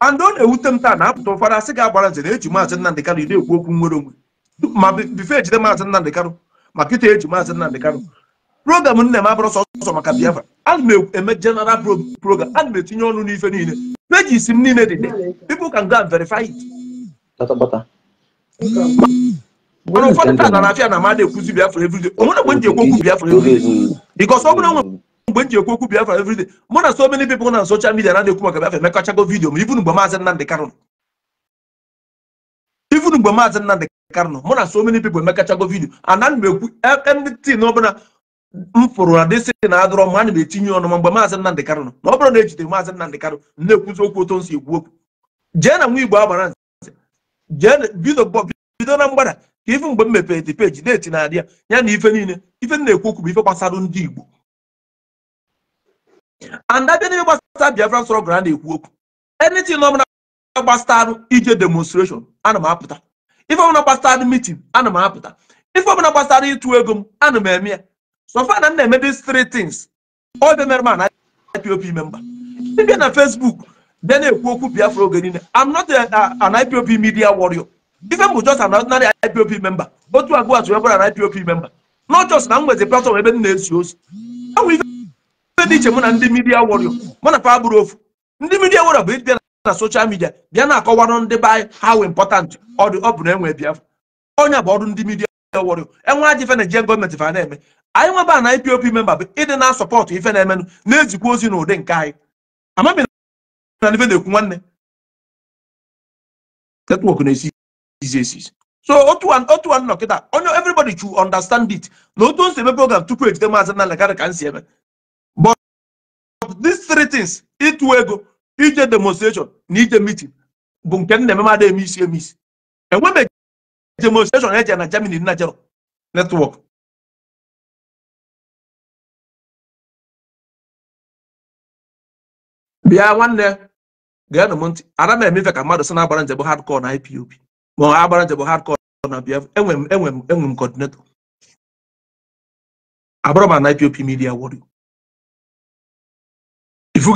a and ọ na-ewute m taa na apụta ụfọdụ asị ga-agbara ntị na-eji Maazị Nnamdị Kanụ na-ekwu okwu nwere onwe ma bife ejide Maazị Nnamdị Kanụ ma kịta eji Maazị Nnamdị Kanụ program nna m abụrụ sọsọ maka Biafra ana m e, eme general program na m etinye ọnụ n'ife niile pages m niile dị dị people can go and verify it mana ụfọdụ taa na afia na onwere mgbe okwu because nwe mgbe nji ekwu okwu biafra mụ na so many people na social media na-ekwu maka biafra emekachago vidio ma mgbe maazị Nnamdị Kanụ ibunu mgbe maazị Nnamdị mụ na so many people emekachago vidio ana ekwu ọbụla m na dịsị na adọrọ ma ana m etinye ọnụ ma mgbe maazị Nnamdị Kanụ nọ na ọ na ejide maazị Nnamdị Kanụ na-ekwuzi okwu otu nsi ekwu okwu jee na Igbo agbara bido na mgbada ka ife mgbe m mepere dị peji deeti na-adị ya ya na ife niile ife m na-ekwu okwu bụ ife gbasara ndị Igbo and abịa n'ihe gbasara Biafra sọrọ gara na-ekwu okwu anything ọbụla gbasarụ ije demonstration ana m apụta ife ọbụla gbasara meeting ana m apụta ife ọbụla gbasara ịtụ ego m ana m eme ya so far na m na-eme these three things ọ bịa na m ana IPOB member ịbịa na Facebook bịa na-ekwu okwu Biafra oge niile I'm not an IPOB media warrior Ife bụ just an ordinary IPOP member otu agwa atụ ekwara na IPOP member not just na m nwezi platform ebe m na-esi ozi enwe ife dị iche mụ na ndị midia warrior mụ na pa ofu ndị midia warrior bụ ịdị na social midia bịa na-akọwarụ ndị be anyị how important ọ bụ na enwe Biafra onye bụ ọrụ ndị midia warrior enwe ajọ ife na Nigerian gọọmenti fa na-eme anyị nweba na IPOP member bụ ịdị na sọpọtụ ife na-emenụ na-ezikwa ozi n'ụdị nke anyị amaghị na ife na-ekwu nwanne netwọk na-esi diseases so otu otu anọ kịta onye everybody should understand it na otu o program tupu ejide maazị Nnamdi Kanu ka m si eme but these three things ịtụ ego ije demonstration na ije meeting bụ nke m na-ememada eme isi eme isi enwe demonstration eje na Germany na jero network bịa nwanne gaa na m ntị ara m emefe ka mmadụ si na-agbara njem hardcore na IPOB ma agbara njem hardcore na BF enwe m enwe m enwe m coordinator abụrụ m na IPOP midia media warrior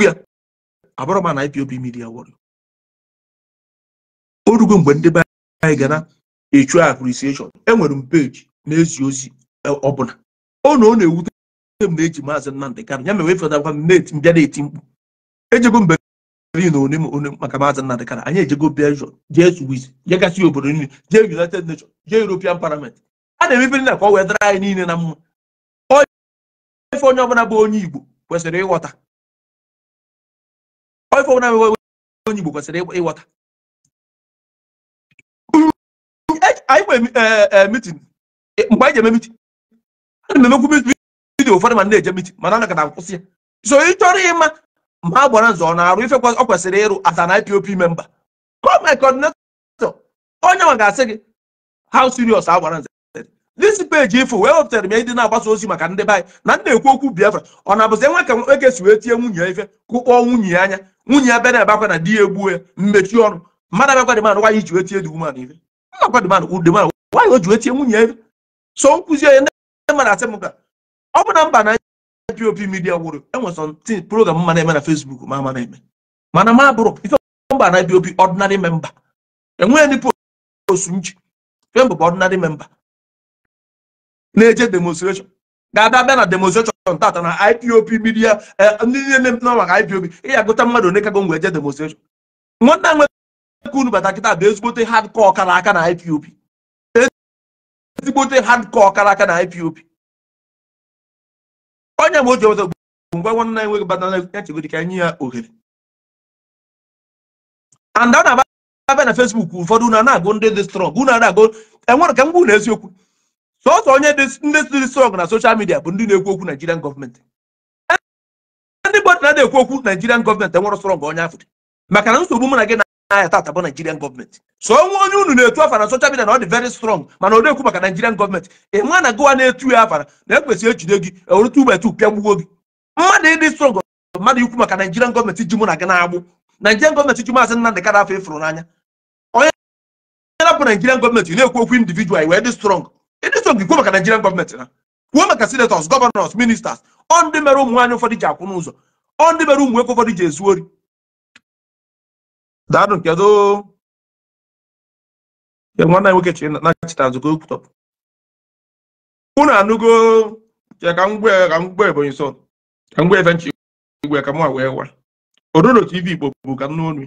ya abụrụ m na IPOP midia warrior o rugo mgbe ndị anyị ga na-echu appreciation enwere m peji na-ezi ozi ọbụla ọ na ọ na-ewute m na-eji maazị Nnamdị Kanụ ya mewe fọdakwa m mbịa na-eti mkpu ejego mgbe ri na one one maka maazi nnamdị kara anyị ejego belgium jee swiss jegasị obodo niile jee united nations jee european parliament a na-emebiri na ka ọ wee dara anyị niile na mma ife onye ọbụla bụ onye igbo kwesịrị ịghọta ife ọbụla bụ onye igbo kwesịrị ịghọta anyị nwere mitin mgbe anyị ji eme mitin ana m emekwu mitin ụfọdụ ma na-eje mitin mana ana ka na akwụsị ya so ị chọrọ ịma mgbe a gbara nzọ ọ na-arụ ife ọ kwesịrị ịrụ as an IPOP member gọọmenti coordinator onye nwa ga-asị gị how serious a gbara nzọ this ifo wee wepụtara m ya ndị na-agbasa ozi maka ndị be anyị na ndị na-ekwu okwu Biafra ọ na-abụzi enwe ka eke si wee tie nwunye ife kụkpọọ nwunye anya nwunye ya bịa na akwa na di ya egbuo ya mmechi ọnụ mmadụ abịakwa dịmanụ nwaanyị ji wee tie dị umeanụ ife akwa dịmanụ ụdịmanụ nwaanyị o ji wee tie nwunye ife so nkwụzi onye ndị mmadụ asị m ka ọ bụ na mba na pop media wuru enwere something program mma na-eme na Facebook ma ama na-eme mana ma bụrụ ife mba na pop ordinary memba enweghị ndị post m ji bụ ordinary memba na-eje demonstration ga-abịa bịa na demonstration tata na IPOB midia eh, ndị niile maka IPOB ịya agụta mmadụ one kago ngwa eje demonstration nwanne a nwere unu bata kịta bụ ezigbote hardcore ọkara aka na ipop ezigbote hardcore ọkara aka na ipop onye mgbe oji ọzọ bụ mgbe nwanne enweghị bata echegodi ka nye ya ohere anda ọ na-abịa na Facebook ụfọdụ unu na-agụ ndị dị strọng unu na-agụ enwere ka mgbu na eziokwu sọsọ onye ndị dị strọng na soshal midia bụ ndị na-ekwu okwu Nigerian gọọmenti ndị bọdụ na-ekwu okwu Nigerian gọọmenti enwere strọng onye afọ maka na nsogbu mụ na gị n'ahịa ta bụ Nigerian gọọmenti so onwe onye unu na-etu afara social media na ọ dị very strong mana ọ na-ekwu maka Nigerian gọọmenti nwa na gụwa na-etu ya afara na ekwesị ejide gị ewere ugbo etu pịa gbugbo gị mmadụ ịdị strong mmadụ ikwu maka Nigerian gọọmenti ji mụ na gị na-agbụ Nigerian gọọmenti ji maazị Nnamdị Kadafa na n'anya onye na-apụ Nigerian gọọmenti na-ekwu okwu individual we dị strong ịdị strong ikwu maka Nigerian gọọmenti na kwuo maka senators ministers ji akwụ n'ụzọ daalụ nke nwanne nwoke nachita nzukọ unu anụgo ka ka mgbe ka mgbe ebonyi so ka mgbe efe nchi igwe ka mwa wee wa ododo tv igbo bụ ka nnu onu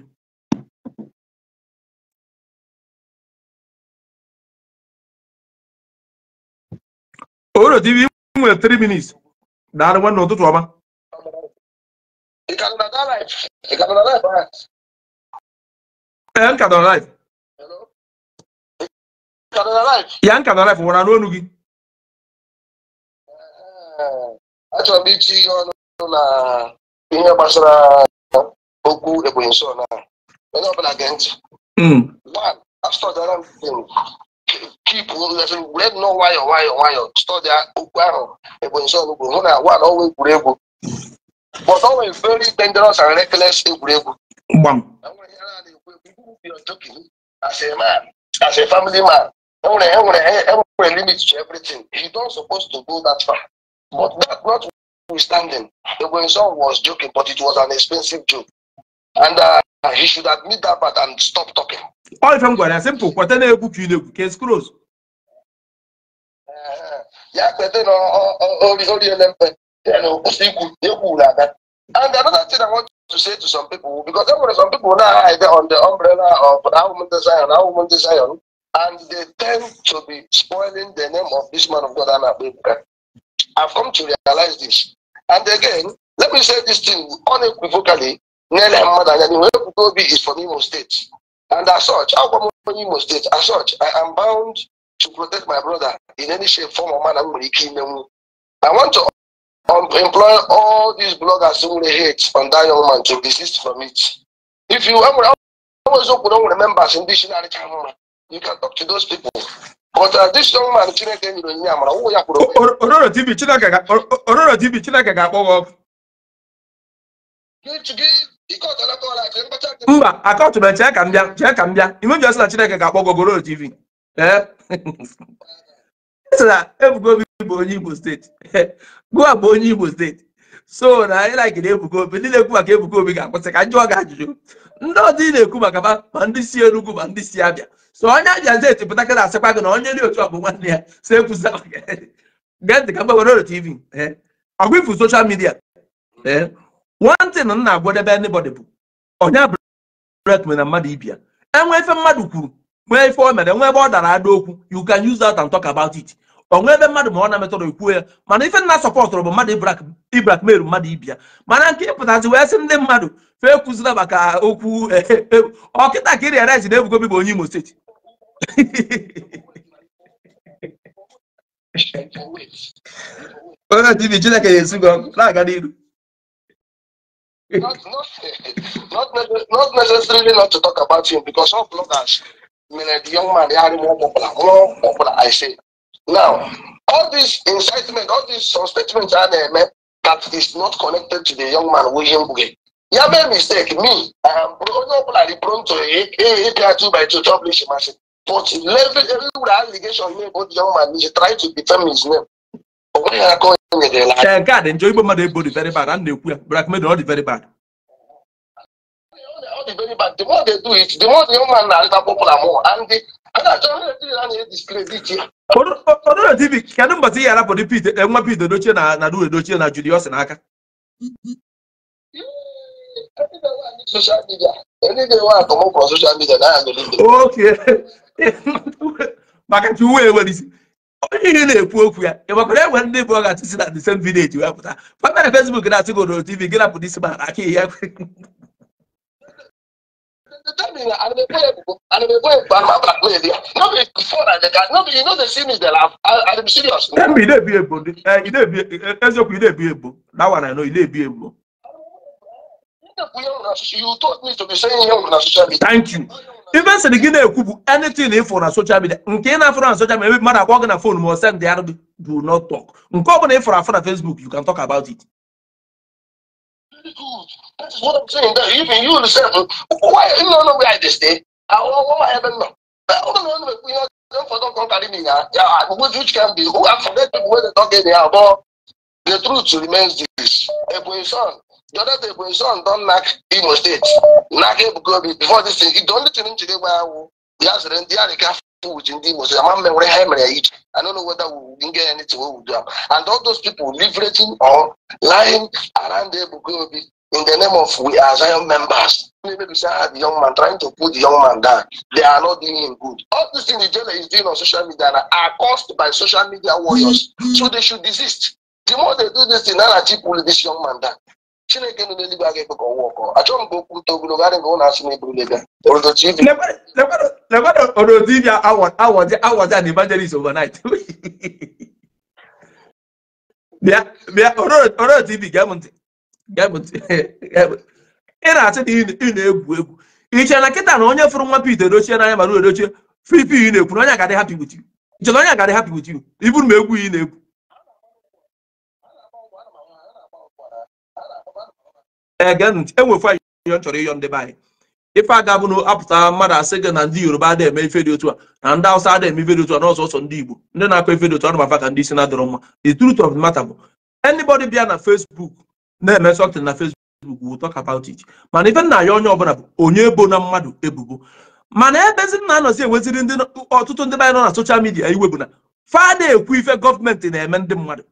ododo tv nwere 3 minutes daalụ nwanne ụtụtụ ọma Yanka eh, Hello. life. Yanka don life wara n'onu gị. Achọrọ m itinye ọnụ na ihe gbasara okwu Ebonyi nso na onye ọbụla gee ntị. One, astọdara m keep wee nọ nwayọọ nwayọọ nwayọọ stọdịa okwu ahụ Ebonyi nso kwuru hụ na one ọnwa egwuregwu. But ọ nwere very dangerous and reckless egwuregwu gbam. As a man, as a family man, every, every, every limit to everything. He don't supposed to go that far. But that not notwithstanding, the grandson was joking, but it was an expensive joke. And uh, he should admit that but and stop talking. All if I'm going to simple, what then you book you know, case close. Uh-huh. Yeah, but then all the LMP, you know, still good, you cool like that. And another thing I want to say to some people, because there were some people now either on the umbrella of our woman desire, our woman desire, and they tend to be spoiling the name of this man of God, Anna I've come to realize this. And again, let me say this thing unequivocally, Nene Mmadanyani Wekutobi is from Imo State. And as such, I'll from Imo State. As such, I am bound to protect my brother in any shape, form, or manner. I want to um, employing all these bloggers who really hate on that young man to desist from it. If you ever, open on members in dictionary channel, you can talk to those people. But uh, this young man, Chineke nyere onye amara, ụwụ ya kwuru Ororo TV Chineke Ororo TV Chineke ga-akpọghọ ọkụ. Mba, akọtụ m chee ka m bịa, chee ka m bịa. Imebi ọsị na Ororo TV. Ee. sị na Ebuka Obi bụ onye Igbo steeti Goa *laughs* bụ onye Igbo steeti so na anyị na-agide Obi ndị na-ekwu maka na-ebuga Obi ga-akwụsị ka njụọ ga ajụjụ ndị ọdị na-ekwu maka ma ndị si Enugu ma ndị si Abịa so onye Abịa steeti pụta ka na-asịkwa gị na onye dị otu ọ bụ nwanne ya so ekwusa gee ntị ka mgbe were TV ọgwa ifu soshal midia e. nwantị na nna ndị anybody bụ onye abụrụ na mmadụ ibia enwe efe mmadụ kwuru nwee ife o mere nwee ebe ọ dara ada okwu you can use that and talk about it onwe ebe mmadụ ma ọ na-emetọrọ ekwuo ya mana ife nna sọpọtụrụ bụ mmadụ ibrak meru mmadụ ibia mana nke ịpụtazi wee sị ndị mmadụ fee kụzira maka okwu e, e, e, ọkịta ka iri erezi na ebugobi bụ onye imo steeti onye tibi chineke na esi gị ọkụ na-aga n'iru Not, not, not necessarily not to talk about him because all bloggers million young man, they are more popular, more popular, I say. Now, all this incitement, all these statements are eh, there, man, that is not connected to the young man, William Buge. You have made mistake, me, I am probably prone to APR 2 by 2 publish machine. But every, every allegation made about the young man, he tried to defend his name. But when I go in the line. Shanka, enjoy my body very bad, and they black men, all very bad. not very bad. The more they do it, the more the young man na-arịta popular more. And the Ọdụrọdibi, kedụ mbọtị ihe arapụ nwa Pete Edochie na na Due na Julius n'aka? Okay. *laughs* maka na uwe enwere isi onye ihe na-ekwu okwu ya ị enwe ndị bụ ọ si atụsi na the same village wee pụta papa na Facebook na-atụ gị Ọdụrọdibi gị rapụ aka ihe ya the time they were unemployable, unemployable, no be before that they no be, you know they see me, they laugh. I, I'm serious. No be, they be able. Eh, they be, Ezeoku, they be able. That one I know, they be able. You taught me to be saying here on social media. Thank you. Even say the Guinea Kubu, anything if on social media, Nkena for on social media, matter walking a phone, more send the Arabic, do not talk. Nkobon if for a Facebook, you can talk about it. That is what I'm saying. That even you yourself, why you don't know where this stay? I want my heaven now. know. I don't know. We are don't for don't come carry me now. Yeah, which can be who I forget people Where they talk in here, but the truth remains this. Ebony son, the other day Ebony son don't knock Imo State, knock go before this thing. The only thing today where I will, he has rent, he has a car with in Imo State. I'm memory hammer each. I don't know whether we can get anything we will do. And all those people leveraging or lying around Ebukobi in the name of we are Zion members. Maybe say ah, the young man trying to put the young man down. They are not doing him good. All these things the jailer is doing on social media are caused by social media warriors. So they should desist. The more they do this, the nara chip pull this young man down. Chineke nọ n'eluigwe aga ebe ka ọwa ọkọ achọrọ m ka an evangelist overnight *laughs* bịa bịa orodo ibi gee m *laughs* ị na-achị na ị na-egwu egwu iche na nkịta na onye fụrụ nwa Pete edochie n'anya mara edochie fripi ị na-ekwu na onye agadị hapi with you na onye agadị hapi with you iburu m egwu ị na-egwu ege ntị enwefụ anyị yo ịyọ ndị be anyị ife aga bụ na apụta mmadụ asị gị na ndị yoruba adịghị eme ife dị otu a na ndị awụsa adịghị eme ife dị otu a n'ọsọ ọsọ ndị igbo ndị na-akọ ife dị otu a na ka ndị isi na-adọrọ mma the truth of the matter bụ anybody bịa na Facebook na-eme something na Facebook we'll talk about it mana ife nna ya onye ọbụla bụ onye ebo na mmadụ ebubo mana ebezi na anọzi enweziri ndị ọtụtụ ndị anyị nọ na soshal midia iwe bụ na fada ekwu ife gọọmenti na-eme ndị mmadụ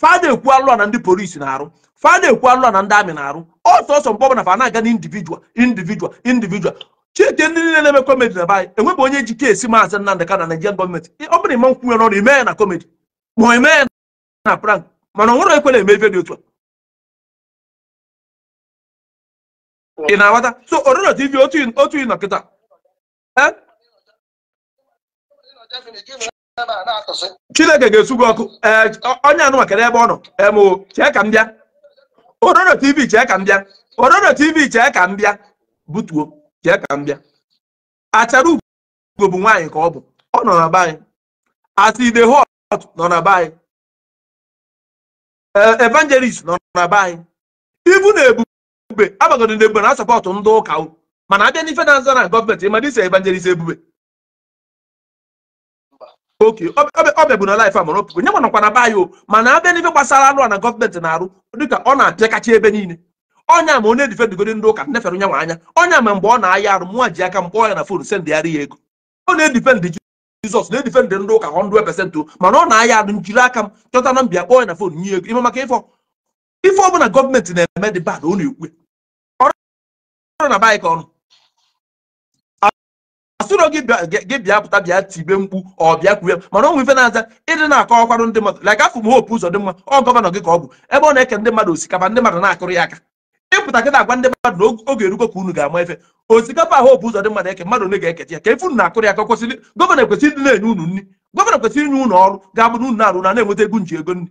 fada ekwu alụa na ndị polisi na-arụ fada ekwu alụa na ndị amị na-arụ ọsọ ọsọ mgbe ọbụla fa na-aga na individual individual chike ndị niile na-eme kọmedi na baanyị enwebụ onye ji keesi maazị Nnamdi Kanu na Naịjirịa gọọmenti ọ bụrụ ịma nkwunye n'ọrụ ime ya na komedi ma ime ya na prank mana ọ nwere ekwena eme ife dị otu a ị na-aghọta so ororo tv otu ị nọkịta chineke ga-esu gị ọkụ onye anụma kedụ ebe ọ nọ emo chee ka m bịa ororo tv chee ka m bịa ororo tv chee ka m bịa butuo chee ka m bịa achara ugo bụ nwaanyị ka ọ bụ ọ nọ na be anyị aside hot nọ na be anyị evangelist nọ na be anyị ibu na ebu ebube agbagoro na ebube na asapọtụ ndị ụka mana abịa n'ife na-aza na gọọmenti ịma dịsa evangelist ebube oke ọbịa bụ na laif amụrụ nye manakwa na o mana abịa n'ife gbasara anụ a na gọọmenti na-arụ dịka ọ na-apịakacha ebe niile ọnya ma onye difedugoro ndị ụka nefere nyanwa anya onye ama mgbe ọ na-aya arụ mụnwa ji aka mkpọ ya na fon sendịgharị ya ego ọ na-edifendị jizọs na-edifendị ndị ụka 100% mana ọ na-aya arụ njiri aka m chọta na mbịa kpọọ ya na fon nye ego ime maka ife ọbụla gọọmenti na-eme dị bad ọ na-ekwe na baịkọn asụrụ gị bịa pụta bịa tibe mkpu ọ bịa kwue mana onwe ife na-aza ịdị na-akọ ọkwarụ ndị mmadụ like afụ m hope ụzọ dị mma ọ gọvanọ gị ka ọ bụ ebe ọ na-eke ndị mmadụ osikapa ndị mmadụ na-akụrụ ya aka ịpụta gị na-agwa ndị mmadụ na oge erugo ka unu ga-ama efe osikapa ahụ opu ụzọ dị mmadụ eke mmadụ ole ga eke ya ka efe na-akụrụ ya ka kwesịrị gọvanọ kwesịrị ndị na-enye unu nri gọvanọ kwesịrị inye unu ọrụ ga-abụ na unu na-arụ na-enweta ego nji ego nri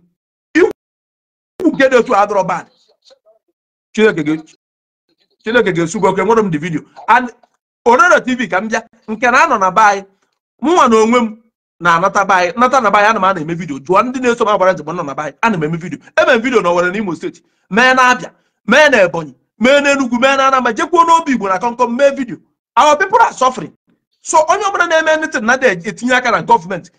ikwu nke dị otu adọrọ bad chineke gị Chineke ga-esu gị enwere m dị vidio Ororo TV ka m bịa nke na anọ na be anyị mụnwa na onwe m na-anata be anyị nata na be anyị ana m ana eme vidio jụọ ndị na-eso m agbara njem e nọ na be anyị ana m eme vidio eme m vidio na Owerri na steeti mee na Abịa mee na Ebonyi mee na enugwu mee na Anambra jekwuo n'obi Igbo na kọnkọm mee vidio our people are suffering so onye ọbụla na-eme anything na etinye aka na gọọmenti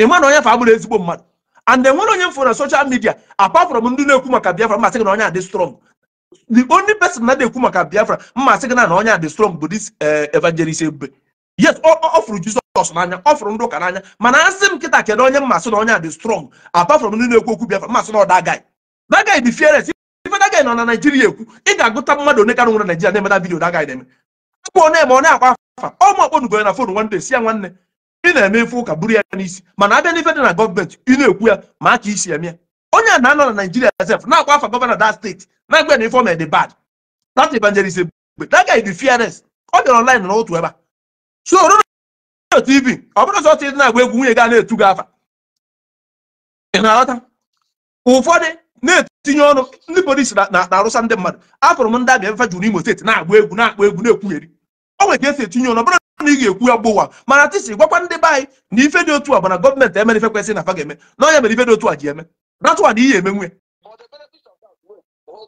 ịma na onye fa abụrụ ezigbo mmadụ and enwere onye m fụrụ na social media apart ndị na-ekwu maka Biafra masị gị na onye adị strong the only person na ekwu maka biafra mma sị na na onye a dị strong bụ this eh, evangelist ebube yes ọ fụrụ jizọs n'anya ọ fụrụ ndị ụka n'anya mana asị m nkịta kedu onye mmasị na onye a strong apart from ekwu okwu biafra mmasị na ọ dagay dagay dị fearless ife dagay nọ na naijiria ekwu ị ga-agụta mmadụ one karịa nwere naijiria na-emeda vidio dagay na-eme akpọ onye eme ọ na-akwa afa ọ ma akpọnugo na fon nwanne si nwanne ị na-eme ife ụka buru ya n'isi mana abịa n'ife dị na gọọmenti ị na-ekwu ya ma aka isi eme ya onye a na-anọ na naijiria sef na-akwa afa gọvanọ that steeti na-agba na dị bad that evangelist egbe that guy dị fearless ọ bịara online na otu ebe a so rụrụ tv ọ bụrụ sọ dị na-agba egwu nwunye na-etu afa ị na-aghọta ụfọdụ na-etinye ọnụ ndị polisi na-arụsa ndị mmadụ afụrụ m ndị abịa jụrụ imo steeti na-agba egwu akpa egwu na esi ị ga-ekwu ya gbụwa mana gwakwa ndị anyị a bụ na onye dị a ji That's what he is. For the benefit of that, For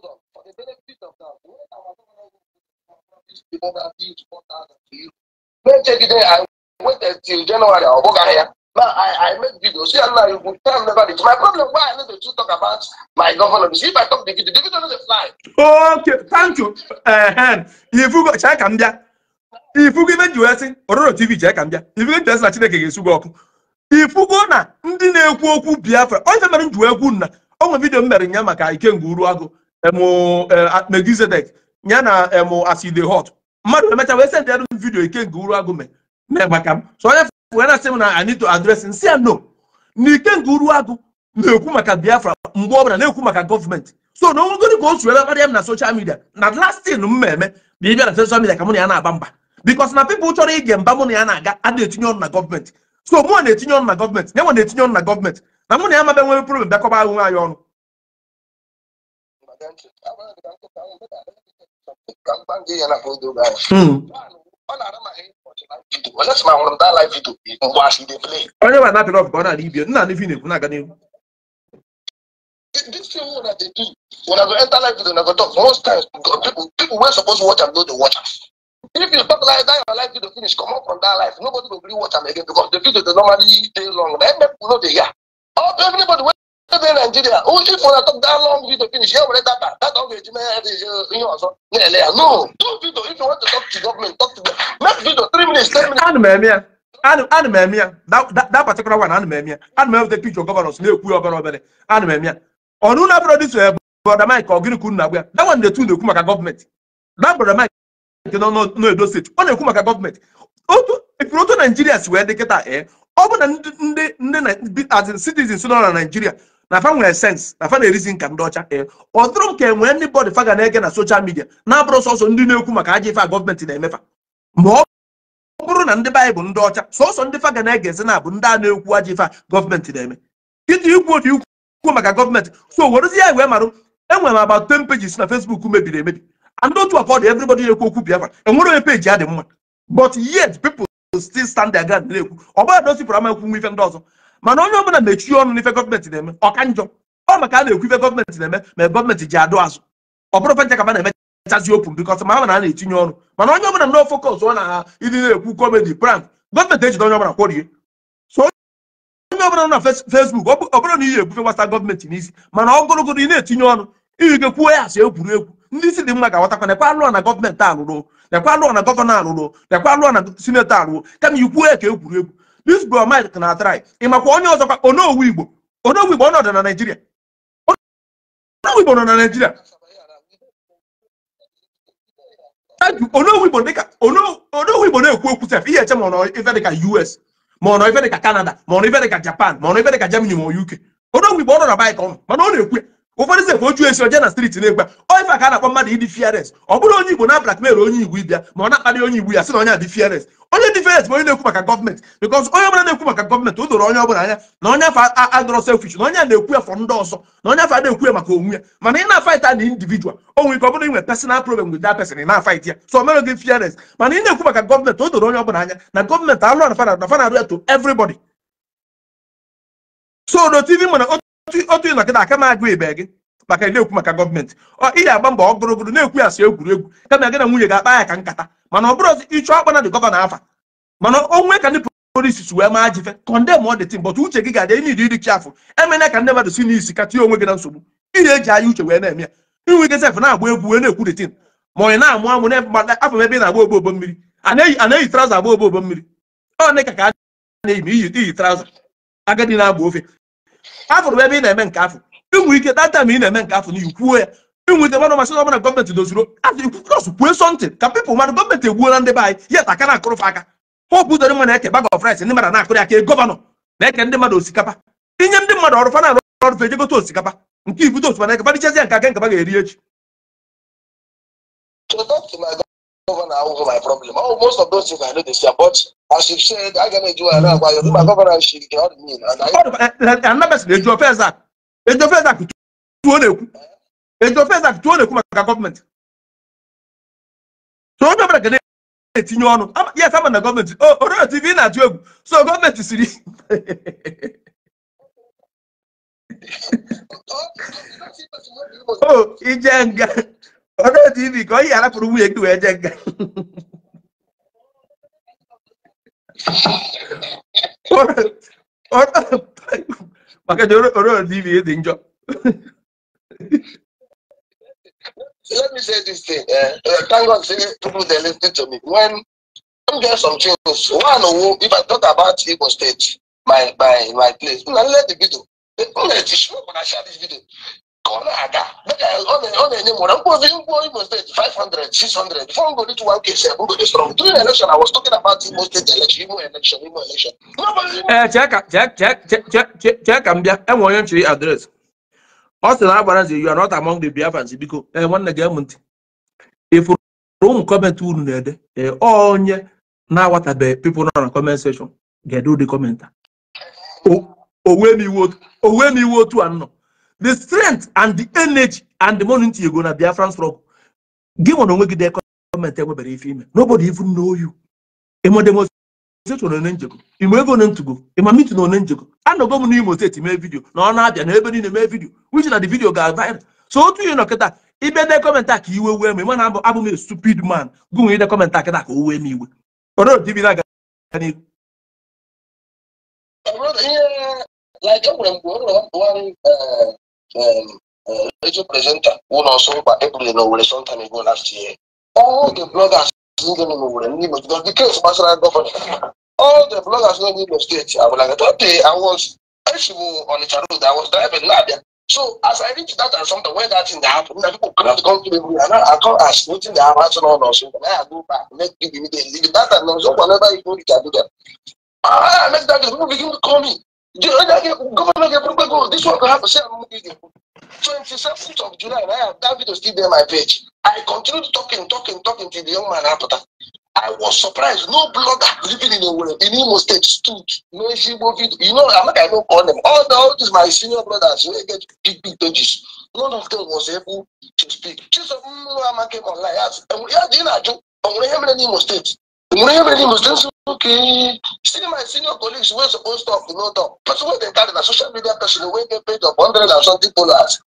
the benefit of that, when our government before that is 1,000 to you, let's check it out. I wait until January, I'll Now I, I make videos. See, Allah, you would tell never this. My problem, why I need to talk about my government? See, if I talk the video, the video doesn't fly. Okay, thank you. Uh, if you go, check and If you give it to us, or TV, check and If you get to us, you ga-esu gị ifugo na ndị na-ekwu okwu biafra onye mere nju egwu nna onwe vidio m mere nya maka ikenga uru agụ e, megizedek ya na emu aside e hot mmadụ emecha wee send yadụ vidio ikenga uru agụ megbaka m so onye wee na-asị m na anito adres si ya no na ikenga uru agụ na-ekwu maka biafra mgbe ọbụla na-ekwu maka gọọmenti so na onwegodi ka o si ebe karịa m na soshal midia na lastin m mmemme bụ ịbịa na soshal midia ka mụ na ya na-agba mba bikos na pipụl chọrọ ige mba mụ na ya na-aga a na-etinye na gọọmenti so mụ na-etinye ọnụ na gọọmenti na enwe na-etinye ọnụ na gọọmenti na mụ na ya mabe nwere problem bịakọba ahụ ayo ọnụ hmm. onye ma napịrị na na-ekwu na-aga n'ihu I go enter live video, go talk, most times people, people were supposed to watch and watch If you stop like that, your life video finish. Come up from that life. Nobody will really watch them again because the video they normally stay long. Then people know they hear. Oh, everybody went to Nigeria. Oh, if you talk that long video finish, here we that that that video uh, you know so. No, do video. If you want to talk to government, talk to them. Make video three minutes, ten minutes. Anu, Anu, Anu, That that that particular one. Anu, Anumemia. Anumemia the picture governors. Na-ekwu obere obere. Anumemia. Ọnụ na-abụrụ dị so ebe. Eh, brother Mike, ọ gịnị ka unu na-agwa ya? That one dey tune na-ekwu maka gọọmenti. That brother Mike nke nọ n'edo steeti ọ na-ekwu maka gọọmenti ifuru otu naijiria si wee dị kịta ee eh, ọ bụ na ndị ndị as citizens nọ na naijiria na fa nwere sens na fa na-erizi nka ndị ọcha ee eh, ọ dụrụ m ka e nwee ndị bọdụ fa ga na-ege na soshal midia na-abụrụ sọsọ ndị na-ekwu maka ajọ ife a gọọmenti na-emefa ma ọ bụrụ na ndị baịbụl ndị ọcha sọsọ ndị fa ga na-egezi na abụ ndị a na-ekwu aja ife a gọọmenti na-eme iji ikwu otu ikwu maka gọọmenti so werezie ya wee marụ enwere m about 10 pages na Facebook mebiri emebi and otu afọ everybody na-ekwu okwu Biafra enwere onye peji ya dị mma but yet people still stand their ground na-ekwu ọ bụla dosipụrụ ama ekwu nwa ife ndị ọzọ mana onye ọbụla mechie ọnụ n'ife gọọmenti na-eme ọka njọ ọ maka a na-ekwu ife gọọmenti na-eme ma gọọmenti ji adụ azụ ọ bụrụ fencha ka ma na-emechazi open because na-etinye ọnụ mana onye ọbụla no focus ọ na ịdị na-ekwu comedy prank gọọmenti ejide onye onye ọ na ị ga n'isi ọ gụrụgụrụ ị na-etinye ndị isi dị mma ga-aghọtakwa nekwa alụọ na gọọmenti alụrụ nekwa alụọ na gọvanọ alụrụ nekwa alụọ na sinetọ alụrụ kama ikwuo ya ka egwuregwu dis bro mike na atrai ị makwa onye ọzọkwa onowu igbo onowu igbo ọnọdụ na naijiria onowu igbo nọ na naijiria onowu igbo dịka onowu igbo na-ekwu okwu sef ihe eche ma ọ nọ ife dịka us ma ọ nọ ife dịka canada ma ọ nọ ife dịka japan ma ọ nọ ife dịka germany ma ọ uk onowu igbo ọ nọ na baịka ọnụ mana ọ na-ekwu ya ụfọdụ ze ekwe oju esi oje na striti na-egba oife ka a na-akpọ mmadụ ịdị fiares ọ bụrụ onye igbo na blackmail onye igbo ịbịa ma ọ na-akparị onye igbo ya sị na onye adị fiares onye dị fiares bụ onye na-ekwu maka gọọmenti bikọs onye ọbụla na-ekwu maka gọọmenti o doro onye ọbụla anya na onye afọ adọrọ selfish na onye a na-ekwu ya fọ ndị ọzọ na onye afọ na-ekwu ya maka onwe ya mana ị na-afaịta na individual nwere ike ọ bụrụ inwe personal problem person ị na ya ekwu maka o doro onye ọbụla anya na alụ na ya to everybody so no tv mana otu ịnọ gị na aka m agụ ibe gị maka na-ekwu maka gọọmenti ihe agba mbọ ọgụrụgụrụ na-ekwu ya si egwuregwu kama gị na nwunye ga-akpa ya ka nkata mana ọ bụrụ ọzọ ịchọ akpa na dị gọvanọ afa mana onwe ka ndị polisi si wee maa jife kọndem ọ dị tim bọtụ uche gị ga-adị enyi dị dịchi afọ emena ka ndị mmadụ si n'isi ka tinye onwe gị na nsogbu iri eji anya uche wee na-eme ya inwe gị sef na-agba egwu wee na-ekwu dị tim ma onye na-amụ amụ afọ ebe ị na-agba ogbo ogbo mmiri a na-eyi agba ogbo ogbo mmiri ọ dị ka ka a na-eyi ma iyi traụza agadi na-agba ofe afụrụ ebe ị na-eme nke afọ inwe ike data ma ị na-eme nke afọ na ikwuo ya inweta mmadụ masị ọbụla gọọmenti dozuru azụ ikwukọs kwue sọntị ka pipụl mmadụ gọọmenti egbuola ndị be anyị ya ta aka na-akụrụfe aka pọp ụdọrị mmadụ eke bag of rice ndị mmadụ na-akụrị aka e gọvanọ na-eke ndị mmadụ osikapa inye ndị mmadụ ọrụ fana ọrụ fe ejegote osikapa nke ibudo osikapa na eke fadichazi ya nke aka nkapa ga-eri echi governor over my problem. Oh, most of those things I know this year, but as you said, I cannot do another why you're my governor, she cannot mean. And I remember the Joe Fezak. The Joe Fezak to one. The Joe Fezak to one government. So I'm not going to etinye ọnụ yes I'm ama na gọọmenti orio tv not atụ egwu so gọọmenti siri *laughs* o oh, oh, ije nga ọjọ́ ti ibì kan yàrá burúkú yẹn gbìwẹ̀ jẹ́ gan. maka da orin tv ya dị njọ let me say this thing uh, uh, thank god say people dey lis ten to me when i'm get some things one owo if i talk about igbo state my my my place una let the video una eh, ti show una share this video ọ na-aga ọ na-enye m nwere mkpozi mkpo Imo steeti 500 600 before m go reach 1k bụ godi strong during election I was talking about Imo steeti election Imo election Imo election chee ka m bịa enwe onye nchiri adreesị. ọ sị na you are not among the Biafrans biko ee eh, nwanne gị m ntị ịfụrụ ụmụ kọmentị unu na-ede ee eh, onye na-awatabeghị pipo nọ na comment seshọn ga-ede ụdị kọmenta m iwu otu a nọ. the strength and the energy and the money you go na Biafran struggle gị nwe na onwe gị dee gọọmenti enwebere ife ime nobody even know you ime ego na ntugo ịma mitin one njego anọgo m n'Imo steeti mee vidio na ọ na-abịa na ebe niile mee vidio which na the video ga-aviral so otu ihe nọ kịta ibe dee kọmentị a ka iwe wee m ịma na abụ m stupid man gụnwe ide kọmentị a kịta ka o wee m iwe n'ihu um, uh, radio presenter who now saw by April in Owerri some time ago last year. All the bloggers living in Owerri, Nimo, because the case was like All the bloggers living in the state, I was I was actually on the road, I was driving now. So as I reached that and something when that thing happened, that people cannot come to me and I come ask nothing that happened on or something. I go back, make give immediately. That and so whenever you go, you can do that. I make that people begin to call me. Governor Gabriel goes, this one could have a share room meeting. 27th of July, and I have that video still there on my page. I continued talking, talking, talking to the young man after. I was surprised. No blogger living in a world in Imo State stood. No Igbo video. You know, I'm not I don't call them. All, the, all these my senior brothers, they get big, big pages. None of them was able to speak. Chisom Mwama came online. Yes, and we had dinner. I'm going to hear me in Imo State. Mourinho really must okay, still my senior colleagues were supposed to talk, no talk. Person wey dey carry na social media person wey get paid of hundred and something dollars.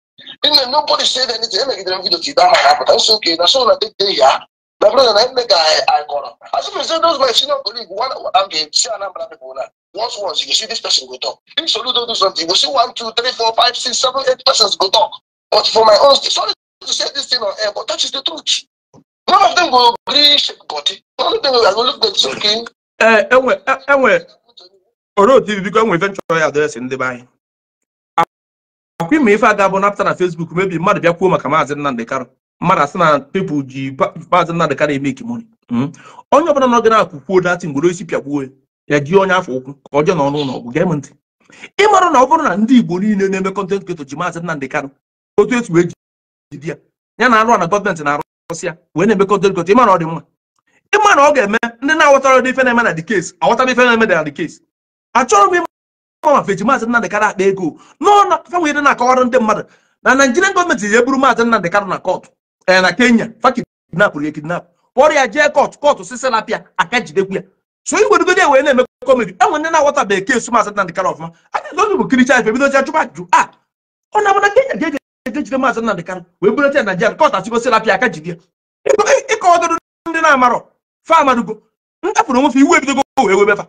Then nobody said anything, e make dem video till that man happen. I say okay, That's all I take dey here. My brother na him make I I call As if say those my senior colleague one am dey see a number of people Once once you see this person go talk. If Solu don do something, you see one, two, three, four, five, six, seven, eight persons go talk. But for my own, sorry to say this thing on air, but that is the truth. None of them will agree shape body. None of them will look them enwe enwe otu biko enwe ya adreesị ndị be anyị. Akwa ime ife aga bụ napụta na Facebook mebi mmadụ bịa maka maazị Nnamdị Kanu mmadụ asị na pepụl ji maazị Nnamdị Kanu eme ikimoni. Onye ọbụla nọ gị na kwuo datị isi pịagbuo ya afọ ụkwụ ka n'ọnụ ụlọ ọgwụ gee m ntị. Ị na ọ bụrụ na ndị Igbo niile na-eme kọntent kreto ji maazị Nnamdị otu etu ya ya na arụ na na ọsị na wee na-emekọta elekọta ịma na ọ dị mma ịma na ọ ga-eme ndị na-aghọtara ụdị ife na-eme na dị kesi aghọtara ife na-eme na dị kesi achọrọ m ịma ma feji maazị Nnamdị akpa ego n'ọnụ fenwere na-akọwara ndị mmadụ na Naịjirịa gọọmenti ji eburu maazị Nnamdị na kọtụ eh, na Kenya fakidnapụrụ ya kidnap kpọrọ ya jee kọtụ kọtụ sisi aka jidekwu ya so wee na-eme kọmedi enwe ndị na-aghọtabeghị kesu maazị ọfụma a ga bụ ife a ah, ọ na ejide maazị Nnamdị Kanụ wee bulata ya na ka kọt achịgosila apịa aka jide ya ịkọdoro ndị na-amarọ fa amadugo ntapụrụ onwefe iwu ebidogo wee webefa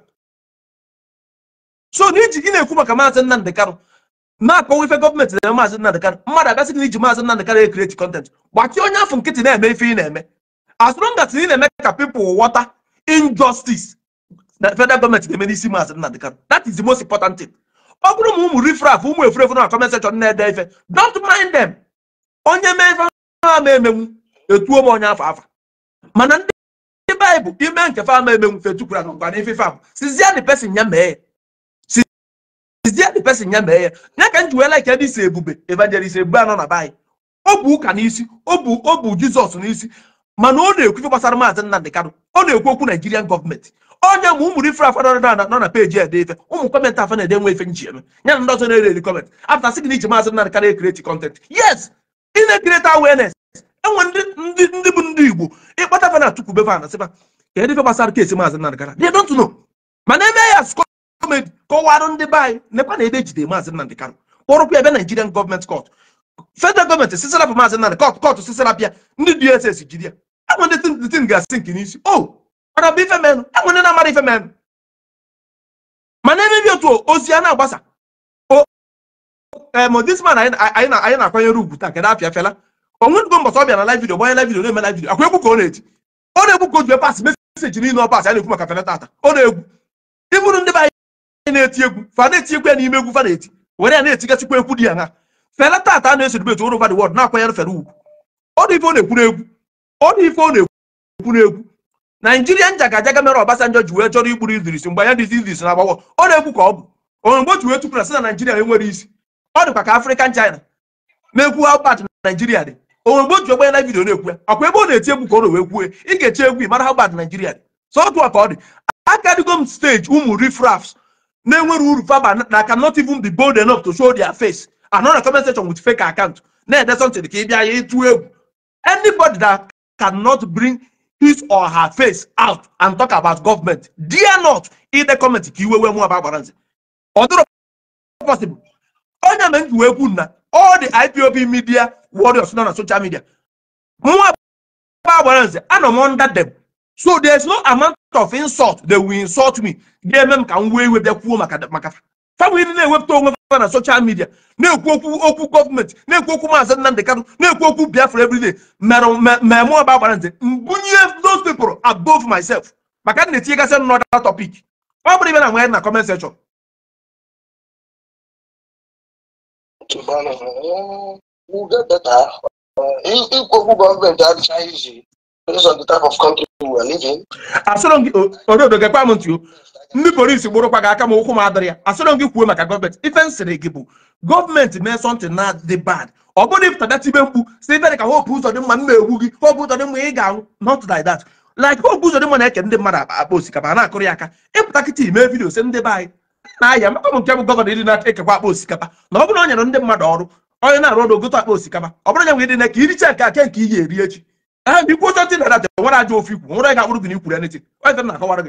so na iji na-ekwu maka maazị Nnamdị Kanụ na akpọwa ife gọọmenti na-eme maazị Nnamdị Kanụ mmadụ agasị na iji maazị Nnamdị Kanụ ekreti kọntent gbakee onye afọ nkịtị na-eme ife ị na-eme as long as ị na-eme ka people ghọta injọstis na federal gọọmenti na-eme n'isi maazị Nnamdị Kanụ that is the most important ọ bụrụ ma ụmụ rifraf ụmụ efurefu na comment section na-ede ife don't mind them onye mee ife ha ma emenwu etuo m onye afọ afa mana ndị ndị baịbụl ime nke fa ma emenwu fetukwara na nkwana ife ife abụ sizie the ya mee sizie ya mee ya ya ka m ji weela ike isi ebube evangelist ebube anọ na baị O bụ ụka n'isi O bụ O bu jizọs n'isi mana ọ na-ekwu ife gbasara maazị Nnamdi Kanu ọ na-ekwu okwu Nigerian gọọmenti onye mgbe ụmụ ife ifere na nọ na peji ede ife ụmụ kọmentị afọ na-ede nwe ife nji ya na ndị ọzọ na-ere eri kọmentị apụta sị gị na iji maazị nna karịa ekreti kọntent yes ị na-ekreti awareness enwe ndị ndị bụ ndị igbo ịkpata fa na tupu befa na sịfa ka ede gbasara kesi maazị nna gara they don't know mana eme ya skọ kọmedi kọwarụ ndị be anyị nekwa na ebe ejide maazị nnamdị karụ kpọrụkwa ebe naijirian gọọmenti kọt federal gọọmenti sisirapụ maazị nnamdị kọt kọt sisirapịa ndị dss jiri ya enwe ndị tin ga-asị nke n'isi o oh! mara bụ ife menụ enwe ndị na-amara ife menụ mana emebi otu ozi a na-agbasa modisman anyị na-akwanyere ugwu taa kedụ apịa fela onwenugo mbọsị ọbịa na live video gbanye live video na-eme live video akwa egwu ka ọ na-eti ọ na-egwu ka o jue pas meseji niile ọ pas a na-ekwu maka fela tata ọ na-egwu ịbụrụ ndị be anyị na-eti egwu fa na-eti egwu ya n'ime egwu fa na-eti were ya na-etigasịkwa ekwu dị ya ha fela tata a na-eso dibet oro vadi wọd na-akwanyere fela ugwu ọ dị ife ọ na-ekwu n'egwu ọ dị ife ọ na-ekwu n'egwu naijiria njagajaga mere Obasanjọ ji wee chọrọ igburu Idris mgbe anya dịzi Idris na-agbagbọ ọ na-ekwu ka ọ bụ onye mgbe o ji wee tupu na sị na naijiria enwere isi ọ dịkwa ka Afrịkan China na-ekwu how bad naijiria dị onwe mgbe o ji ogbe na vidio na-ekwu ya ọkwa ebe ọ na-eti egwu ka ọ na wee kwue ị ga-eche egwu ị mara how bad naijiria dị so ka ọ dị akadigo m steji ụmụ refrafs na-enwere uru faba na cannot even be bold enough to show their face anọ na comment section with fake account na-ede something ka ị bịa ya ịtụ egwu anybody that cannot bring his or her face out and talk about government dear not ide kọmentị ka iwe wee mụ aba agbara nze ọ dịrọ possible onye na nji wee na all the ipob media warriors not na social media more aba agbara nze anọ m under them so there is no amount of insult they will insult me ga-eme ka m wee iwe dey kwuo maka maka famili na-ewepụta onwe ha na soshal midia na-ekwu okwu okwu gọọmenti na-ekwu okwu maazị Nnamdi Kanu na-ekwu okwu Biafra everyday mmemme ọba agbara ntị mbunye those people above myself maka na-etinyegasị another topic ọ bụrụ ibe na nwanyị na gọọmenti eh, eh, adịchaghị based on the type of country we are living. asọrọ gị ododo gekwa m ntị ndị polisi gburụkwa gị aka m ụkwụ m adịrị ya asọrọ gị kwuo maka gọọmenti ife m sịrị gị bụ gọọmenti mee sọntị na dị bad ọ bụrụ ịpụtada tibe mkpu si ife ka hope ụzọ dị mma m na-egwu gị hope ụzọ dị mma ị ga-anwụ not like that like hope ụzọ dị mma na-eke ndị mmadụ akpa osikapa a na-akụrụ ya aka ịpụta kịta ime vidio si ndị be anyị na-aya maka m nke bụ gọvanọ ndị na-ekekwa akpa osikapa na ọ bụrụ na nyere ndị mmadụ ọrụ onye na-arụ ọrụ ogote akpa osikapa ọ bụrụ nya nwe dị na ka iricha nke aka nke ị ga-eri echi a ikwu oche na aja nwere aja ofu ikwu nwere ga-akpụrụ gị n'ikwuru anything ọ dị na akọwara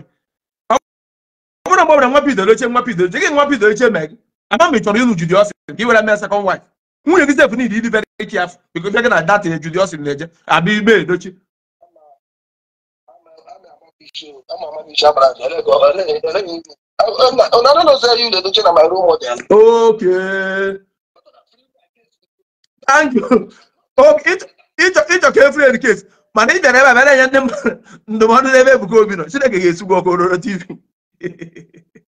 ọ bụrụ mgbe nwa i want to bidoro oche gị nwa bidoro oche mee gị ama m chọrọ ịlụ judi ọsị ka ị were mee sekọnd waif nwunye gị sef niile ịdị very careful biko bịa gị na data ya judi ọsị na-eje abịa igbe edochi okay thank ịchọ ka efere edukes mana ị bịara ebe a enye ndị mmadụ *laughs* ndụmọdụ n'ebe Ebuka Obi nọ Chineke ga-esu gị ọkụ ororo TV ndị na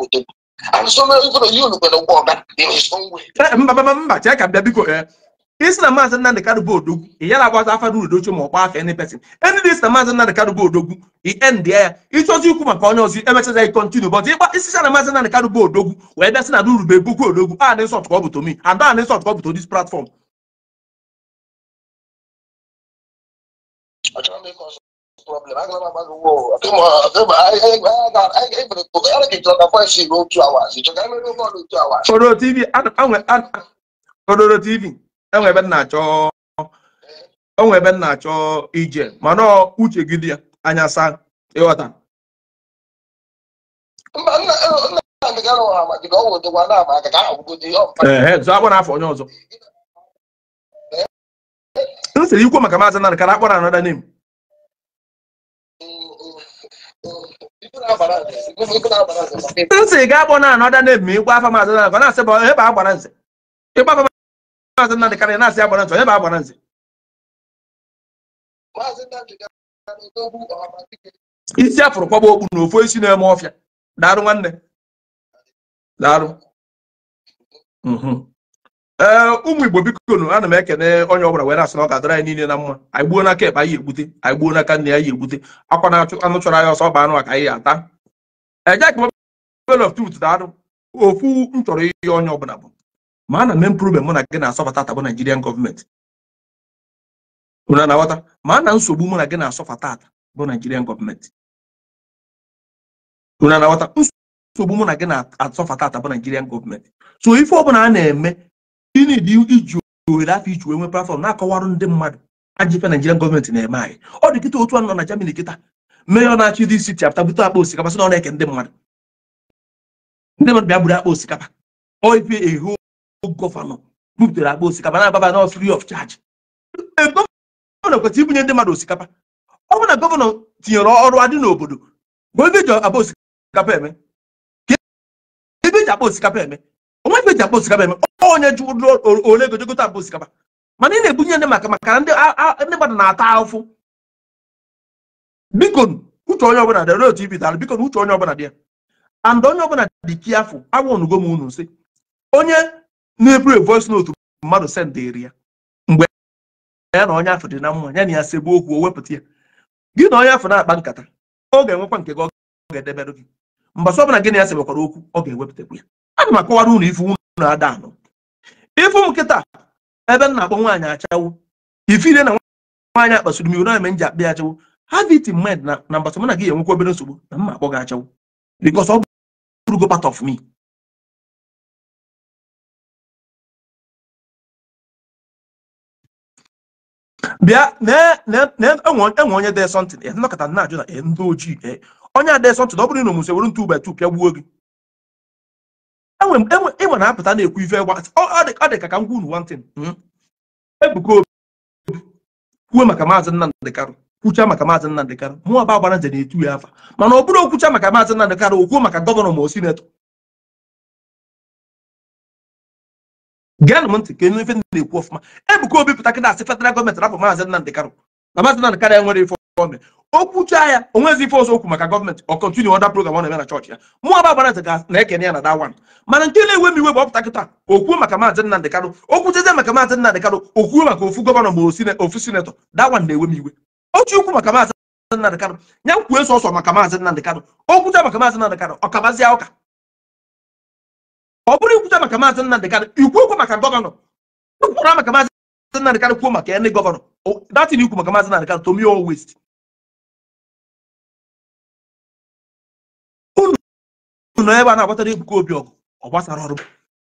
nna mba mba chee ka bịa biko isi na maazị Nnamdị Kanu odogwu ị ya na-agbaza afa n'Udochi ma ọ kpọ afa any person ndị isi na maazị Nnamdị Kanu odogwu end ya ịchọzi ikwu maka onye ọzọ emechaza kontinu bọt ịgba isicha na maazị Nnamdị Kanu odogwu na odogwu a dị nsọ ada a dị nsọ tụkọ bụ to platform problem agala m agụwo odoro tv enwe ebe na-achọ ije mana uche gị dị anya saa ịghọta akpọ n'afọ onye ọzọ m sịrị ikwu maka maazị Nnamdi ka akpọ na anọda name nsị ga-agbọ na anọ na ebe ịgwa afa maazị na na-asị bụ ebe agbara nze ịgwa afa maazị na dịkarị na-asị agbara nze ebe agbara nze isi afụrụ kwaba okpu na ofu isi na-eme ọfịa daarụ nwanne daarụ mhm. ee eh, ụmụ igbo biko nụ ana m ekene onye ọbụla were asị na ọ ga-adịra anyị niile na mma anyị gbuo n'aka ebe anyị egbute anyị gbuo n'aka nne anyị egbute akwa na anụ chọrọ anyị ọsọ ọba anụ a ka anyị ya ata ejekpel of truth da-adụ ofu m chọrọ ihe onye ọbụla bụ ma ana m improvement mụ na gị na-asọfata tabụ Nigerian gọọmenti na-aghọta ma na nsogbu mụ na gị na-asọfata ata bụ Nigerian gọọmenti na-aghọta nsogbu mụ na gị na-asọfata ata bụ Nigerian gọọmenti so ife ọbụla a na-eme gịnị dị iji ohere afọ iji wee nwe platform na-akọwarụ ndị mmadụ ajọ Nigerian gọọmenti na-eme anyị ọ dị kịta otu a nọ na Germany kịta mayor na-achị dị isi chapta bute akpa osikapa sị na ọ na-eke ndị mmadụ ndị mmadụ bịa buru akpa osikapa oife ehu gọvanọ bupụtara akpa osikapa na-agbaba na free of charge gọvanọ kwesịrị ibunye ndị mmadụ osikapa ọ bụ na gọvanọ tinyere ọrụ adị n'obodo ebe eji akpa osikapa eme ebe eji akpa osikapa eme onwe ebe eji akpa osikapa eme onye ji ole gojegote akpa osikapa mana ị na-ebunye ndị maka maka ndị mmadụ na-ata afụ biko uche onye ọbụla dị otu ibitara biko na uche onye ọbụla dị ya and onye ọbụla dị kiafụ agwọnugo m unu sị onye na-eburu voice note mmadụ sendịrị ya mgbe ya na onye afọ dị na mma ya na ya segbu okwu o wepụta ya gị na onye afọ na-akpa nkata ọ ga-enwekwa nke gị ọ ga-edebere gị mgbe ọsọ ọbụla gị na ya sebekwara okwu ọ ga-ewepụtakwu ya ana m akọwara unu ifu unu ada anọ ịfụ m nkịta ebe m na-akpọ nwaanyị achawo ifire na nwaanyị akpasuru m iwu na eme m ji ya achawo have it in mind na na mbata mụ gị enwekwa obere nsogbu na mma akpọ gị achawụ because ọ bụrụgo part of me bịa enwe onye dee sọntịn ya nọkọta na-ajụ na ndị ojii onye a dee sọntịn ọ bụrụ na omume were ntu batu pịa gbuo gị ịnwe na-apụta na-ekwu ife gwa ọ dị ka ka m gwa unu wantin hmm? ebuka obi kwuo maka maazị Nnamdi Karu kwucha maka maazị Nnamdị Kanụ mụnwa ba agbara nze na-etu ya afa mana ọ bụrụ okwucha maka maazị Nnamdị Kanụ okwuo maka gọvanọ ma o sinetọ gaanụ m ntị ka ife na-ekwu ọfụma Ebuka Obi pụta kịta asị federal gọọmenti rapụ maazị Nnamdị Kanụ na maazị Nnamdị Kanụ enwere ife gọọmenti okwucha ya onwezi ife ọzọ okwu maka gọọmenti ọ kọntinu ọda program ọ na-eme na chọọchị ya mụ ba agbara nze na-ekene ya na dawan mana nke na-enwe m iwe bụ ọpụta kịta okwuo maka maazị Nnamdị karụ okwuchezie maka maazị Nnamdị Kanụ okwuo maka ofu gọvanọ ma ofu sinetọ dawan na-enwe m iwe otu ukwu maka maazị Nnamdi Kanu ya kwuo e sọsọ maka maazị Nnamdi Kanu o kwucha maka maazị Nnamdi Kanu ọ ụka ọ bụrụ ikwucha maka maazị Nnamdi Kanu ikwu okwu maka gọvanọ kwukwara maka maazị Nnamdi Kanu kwuo maka ndị gọvanọ datin ikwu maka maazị Nnamdi Kanu tomi west. unu nọ ebe a na-agbatara Ebuka Obi ọgụ ọ gbasara ọrụ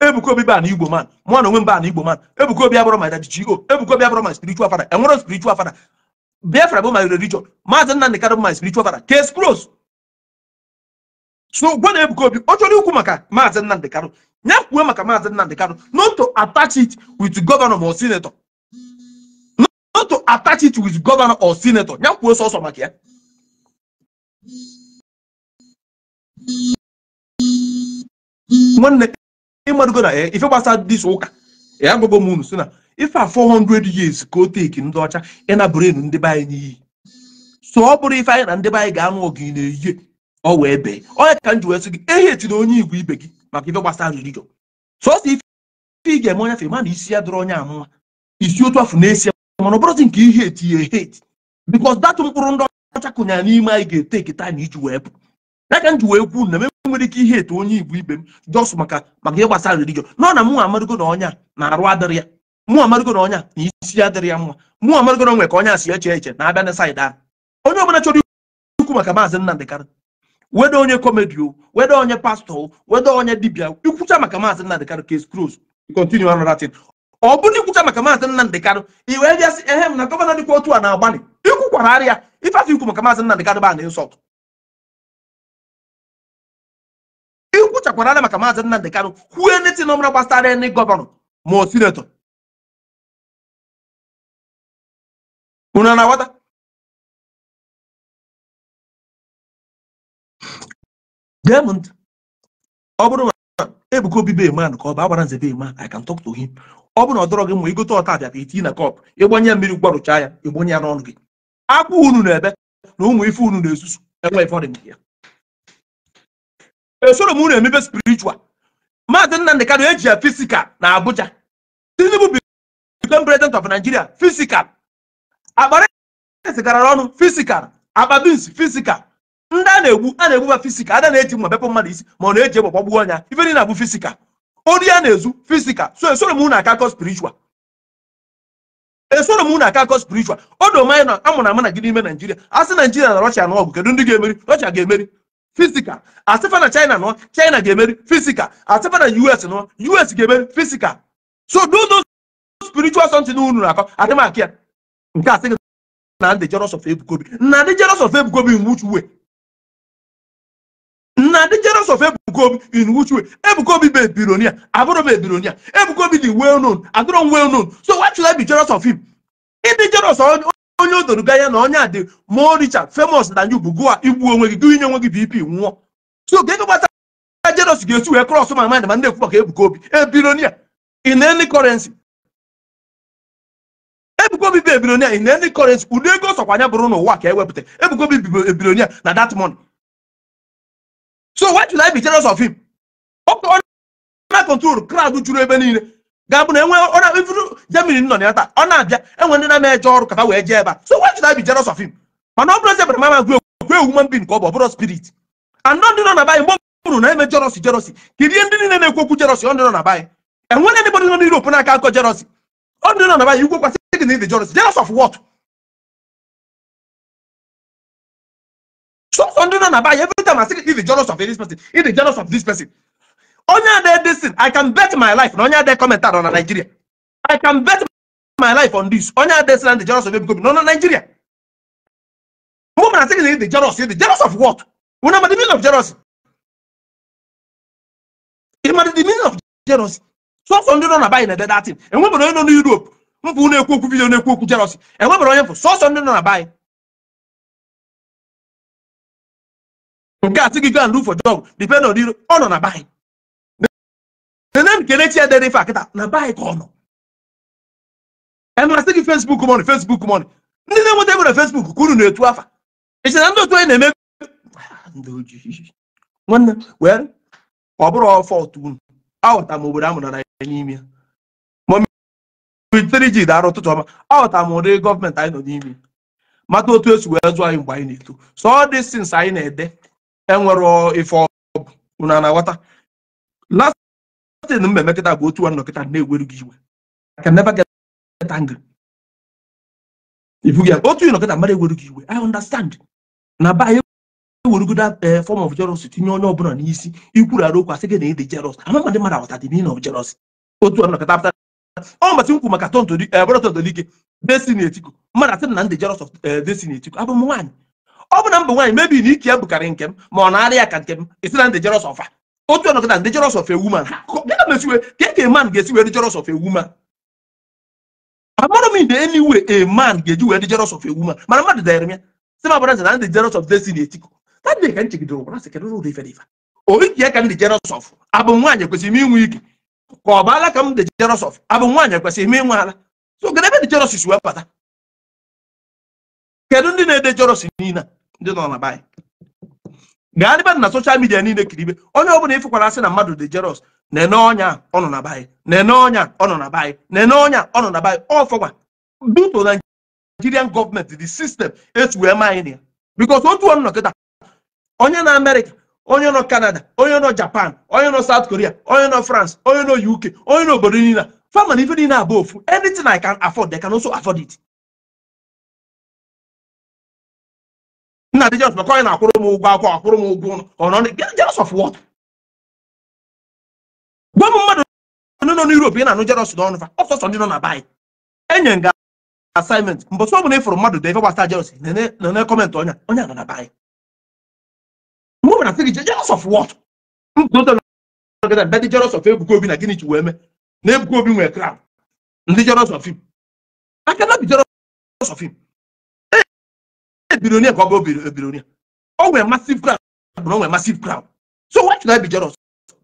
Ebuka Obi baa na Igbo man mụ na onwe m baa na Igbo man Ebuka Obi abụrụ my daddy G.O Ebuka Obi abụrụ ma spiritual father enwere spiritual father Biafra bụ my religion maazị Nnamdi Kanu bụ my spiritual father case closed so gwa na Ebuka Obi ọ chọrọ ikwu maka maazị nna Kanu ya nyakwuo maka maazị Nnamdi Kanu not to attach it with governor or senator not to attach it with governor or senator nyakwuo so sọsọ maka ya nwanne ịmadụgo na eh, ife dis ife a 400 years ka o teki ndị ọcha ịnabụrụ ndị be anyị n'iyi so ọ bụrụ ife anyị na ndị be anyị ga-anụ ọgụ na-eyihe ọ wee bee onye ka nji wee sị gị ehi na e onye igwe ibe gị maka ife gbasara religion sọsọ ife ị ga-eme onye fe ma na isi ya dịrị onye amụma isi otu afọ na-esi mana ọ bụrụzi nke ihe etinye hate because datụ mkpụrụ ndị ọcha kụnyara n'ime anyị ga-eteki taa na iji wee pụ ya ka m wee kwuo na m nwere ike ihe etu onye igwe ibe m jos maka maka ihe gbasara religion nọ na mụ nwa na onye a na-arụ adịrị ya mụọ amarụgo na ọnya na isi ya dịrị ya mma mụọ amarụgo na onwe ka ọnya si eche eche na-abịa na saịdị ahụ onye ọbụla chọrọ ikwu maka maazị Nnamdi wedo weda onye kọmedi o weda onye pastọ wedo weda onye dibia ikwucha maka maazị Nnamdi Kanu case close continue another thing ọ bụrụ ikwucha maka maazị Nnamdi Kanu i wee bịasị ehe m na gọvanọ dịkwa otu a na-agbalị ikwukwara ara ya ife ikwu maka maazị Nnamdi Kanu ba na insult ikwuchakwara ara maka maazị Nnamdi kwuo netin ọmụra gbasara ndị gọvanọ ma sinetọ una navata gee m ọ bụrụ na Ebuka Obi be man ọ bụ agbara nze be man I can talk ọ bụrụ na ọ dọrọ gị ma igote ọta abịa iti na kọp ịgbanye mmiri gwarụchaa ya ịgbanye ya n'ọnụ gị akwa unu na-ebe na ụmụ ife unu na-esusu enwe ife ọ dị m emepe eji ya fisikal na Abuja Tinubu become president fisikal akpa rice garara ọnụ fisikal akpa bins fisikal ndị a na-egbu a na-egbuba fisikal ada na-eji mma bepụ mmadụ isi ma ọ na-eji egbe gbagbuo ọnya ife niile abụ fisikal ori a na-ezu fisikal so esoro m e na akọ spiritual esoro m na akakọ spiritual odo manyị na amụna ama na gị n'ime naijiria asị naijiria na rọshia na ọgụ kedu ndị ga-emeri rọshia ga-emeri fisikal asịfa na china nọ china ga-emeri fisikal asịfa na us us ga-emeri fisikal so do those unu na-akọ adịmaka ya nke a sịghị na ndị jealous of Ebukobi na ndị jealous of Ebukobi in which way na ndị jealous of Ebukobi in which way Ebukobi bụ ebironia abụrụ m ebironia Ebukobi dị well known adịrọ m well known so why should I be jealous of him ịdị jealous onye o doro ya na onye a dị more richer famous than you bụ gụa igbu onwe gị gụnye onwe gị BP nwụọ so ga ego gbasara jealous ga-esi wee cross my mind ma ndị ekwu maka Ebukobi ebironia in any currency ebuka obi bụ ebilonia in any currency ụdị ego sokwa anya bụrụ n'ụwa ka ewepụta ebuka ebilonia na that money so why should i be jealous of him ọkụ na control crowd juru ebe niile ga-abụ na enwe ọna ifuru germany nọ na ya taa ọ na-abịa enwe ndị na eje ọrụ kata wee jee ebe so why should i be jealous of him mana ọ bụrụ eze bara mama gwe gwe human being ka ọ bụ ọbụrụ spirit and ndị nọ na bayị mgbe bụrụ na eme jealousy jealousy kirie ndị niile na-ekwu okwu ọ ndị nọ na bayị ndị nọ akọ ọ ndị nọ na making him the jealous. Jealous of what? So Sunday and Abai, every time I see he's the jealous of this person, he's the jealous of this person. onye this thing. I can bet my life. Onya there comment on Nigeria. I can bet my life on this. Onya there and the jealous of him no no Nigeria. Woman I think he's the jealous. the jealous of what? We the meaning of jealousy. be the meaning of jealousy. So in thing. And mkpụ na-ekwu okwu vidio na-ekwu okwu jealousy enwebere onye mfụ sọsọ ndị nọ na baị nke a sịgị gan lufo jog depend on iro ọ nọ na baị nene m kelechi ya dere ife akịta na baị ka ọ nọ emasị gị fesbuk mọni fesbuk mọni ndị na-enweta ebere fesbuk ka unu na-etu afa ịchị na ndị otu anyị na-eme ndị ojii nwanne wee ọ bụrụ ọfọ otu unu aghọta m obodo amụrụ na ya n'ime ya ji dara ụtụtụ ọma aghọtara m ụdị gọọmentị anyị nọ n'ime mata otu esi wee zụọ anyị mgbe anyị na-eto so ọ dị things anyị na-ede enwere ife ọbụ unu na-aghọta last thing m bụ otu nwanne kịta na-ewere gị iwe I can otu ịnọkịta mmadụ gị iwe na be anyị ewerugoda tinye onye ọbụla n'isi ikwuru arụ okwu asị gị na ịdị jealous amamadị dị na ọ mbọchị m kwu maka tontoli eh, ike destiny etiko mmadụ atị na ndị jeros of eh, destiny abụ m nwaanyị ọ bụ na mbụ nwaanyị mebi na ike ya bụkarị nke m ma ọ na arị ya ka nke m esi na ndị jeros of otu ọnọdụ na ndị jeros of a woman ka eke e man ga-esi wee dị jeros of ewu m ide eniwe e man ga-eji wee dị jeros of ewu woman mana mmadụ ya si m na ndị jeros of tadị ka m ka ndị jeros abụ nwaanyị m inwe ike ka ọ baala ka m dị jealous of abụ nwaanyị kwesịrị ime nwe ala so gara ebe dị jealous si wee bata kedu ndị na-ede jealous niile ndị nọ na baanyị gaa n'ebe na soshal midia niile kiribe onye ọbụla ịfụkwara asị na mmadụ dị jeros nene ọnya ọ nọ na baanyị nene ọnya ọ nọ na enye nene ọnya ọ na baanyị ọfọgwa duto na nigerian gọọmenti the system etu wee ma anyị na ya bikos otu ọnụ nọ onye na amerịka onye nọ Canada onye nọ Japan onye nọ South Korea onye nọ France onye nọ UK onye nọ obodo niile fama na ife niile abụ ofu anything I can afford they can also afford it nna dị jos maka onye na-akwụrụ m ụgwọ akwụkwọ akwụrụ m ụgwọ ụlọ jealous of what gwa m mmadụ nọ n'Europe ị na-anụ jealous n'ọnụ fa ọsọsọ ndị nọ na baị enye nga assignment mbọsị ọ ịfụrụ mmadụ dị ife gbasa kọmentị onye onye asị gị jealous of what ndị jealous of ebuka obi na gịnị chi wee mee na ebuka obi nwere crowd ndị jealous of him I cannot be jealous of him billionaire ka ọ bụ billionaire o nwere massive crowd bụrụ o nwere massive crowd so why should I be jealous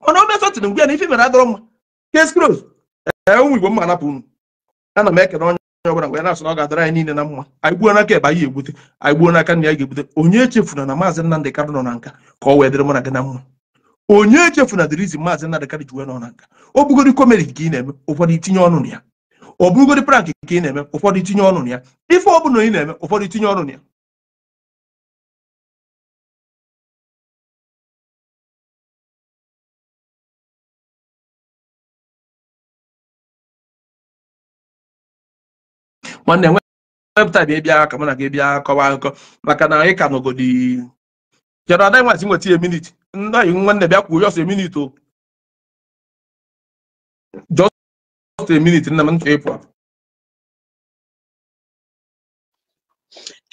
mana o mee sọtịn mgbe na ife mere adọrọ mma case close ee eh, eh, ụmụ Igbo mma anapụ unu ana m ekele onye onye ọbụla wee na-asụ na ọ ga-adara anyị niile na mma anyị gbuo n'aka ebe anyị egbute anyị gbuo n'aka nna ya ga-egbute onye echefuna na maazị Nnamdị Kanu nọ na nka ka ọ wee dịrị mụ na gị na mma onye echefuna dịrị izi maazị Nnamdị Kanu ji wee nọ na nka ọ bụgodi komedi ka ị na-eme ụfọdụ itinye ọnụ na ya ọ bụgodi prank ka ị na-eme ụfọdụ itinye ọnụ na ya ife ọ bụla ị na-eme ụfọdụ itinye ọnụ na ya nwanne nwe webụtaịm ị bịa ka mụ na gị bịa kọwa akụkọ maka na anyị ka nọgodi kedu ada nwazi nweta ya minit ndị anyị nwanne bịa kwuo jọs minit o jọs minit nna m nchọ ịpụ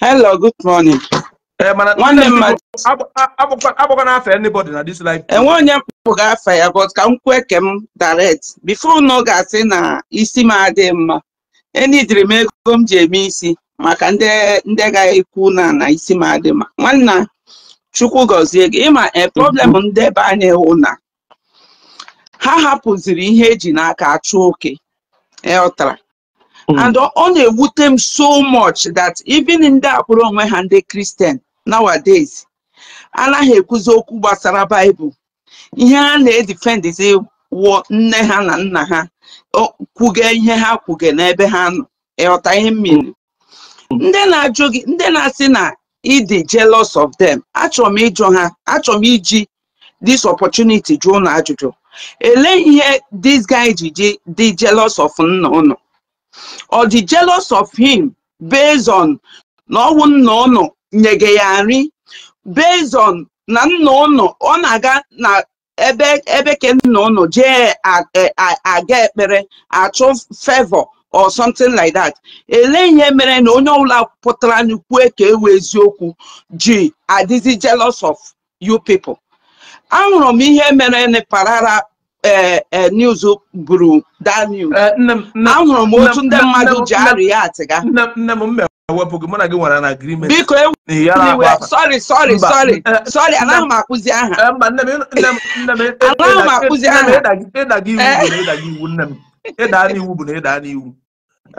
Hello, good morning. Ee, mana nwanne m agbakwa n'afa anybody na this life. Enwe onye mpụ ga-afa ya but ka m kwue ke m direct bifo na ga-asị na isi m adịghị mma enidiri m ego ego m ji eme isi maka ndị ndị ga-ekwu na na isi m adị ma nwanna chukwu gọzie gị ịma e problem mhm. ndị be anyị hụ na ha hapụziri ihe eji n'aka achụ oke ịghọtara e, mhm. and ọ na-ewute m so much that even ndị akpụrụ onwe ha ndị kristian nowadays anaghị ekwuzi okwu gbasara baịbụl ihe ha na-edifendizi wụọ nne ha na nna ha kwuge ihe ha kwuge n'ebe ha nọ ịghọta ihe mmiri ndị na-ajụ gị ndị na-asị na ịdị jealous of them achọrọ m ịjụ ha achọrọ m iji this opportunity jụọ ụnụ ajụjụ ele ihe this guy ji dị jealous of nna ụnụ ọ dị jealous of him based na ọwụ nna ụnụ nyege ya nri based na nna ụnụ ọ na-aga na ebe ebe ke nna ụnụ jee aga ekpere achụ fevọ. or something like that ele ihe mere na onye ọbụla pụtara anyị kwue ka ewe eziokwu ji adịzi jealous of you people ahụrụ m ihe mere na parara news buru daniel ahụrụ m otu ndị mmadụ ji arịa atịga biko ewe sorry sorry sorry sorry anaghị m akụzi aha anaghị m akụzi aha ịda n'iwu bụ na ịda n'iwu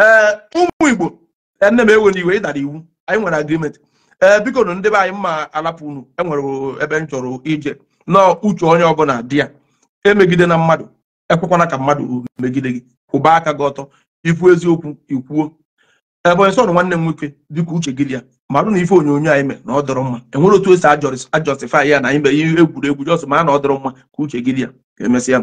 ee ụmụ igbo e, nne m ewere iwe ịdara iwu anyị nwere agrimenti ee biko na ndị be anyị mma alapụ unu enwere ebe m chọrọ ije nọọ uche onye ọbụla dị ya emegide na mmadụ ekwekwana ka mmadụ megide gị kwụba aka gị ọtọ ikwu eziokwu ikwuo ebe nsọ nwanne m nwoke dịka uche gị ya marụ na ife onyonyo anyị mee na ọ dọrọ mma enwere otu esi ajọsifai ya na anyị mere ihe egwuregwu jọs ma na ọ dọrọ mma ka uche gị ya emesịa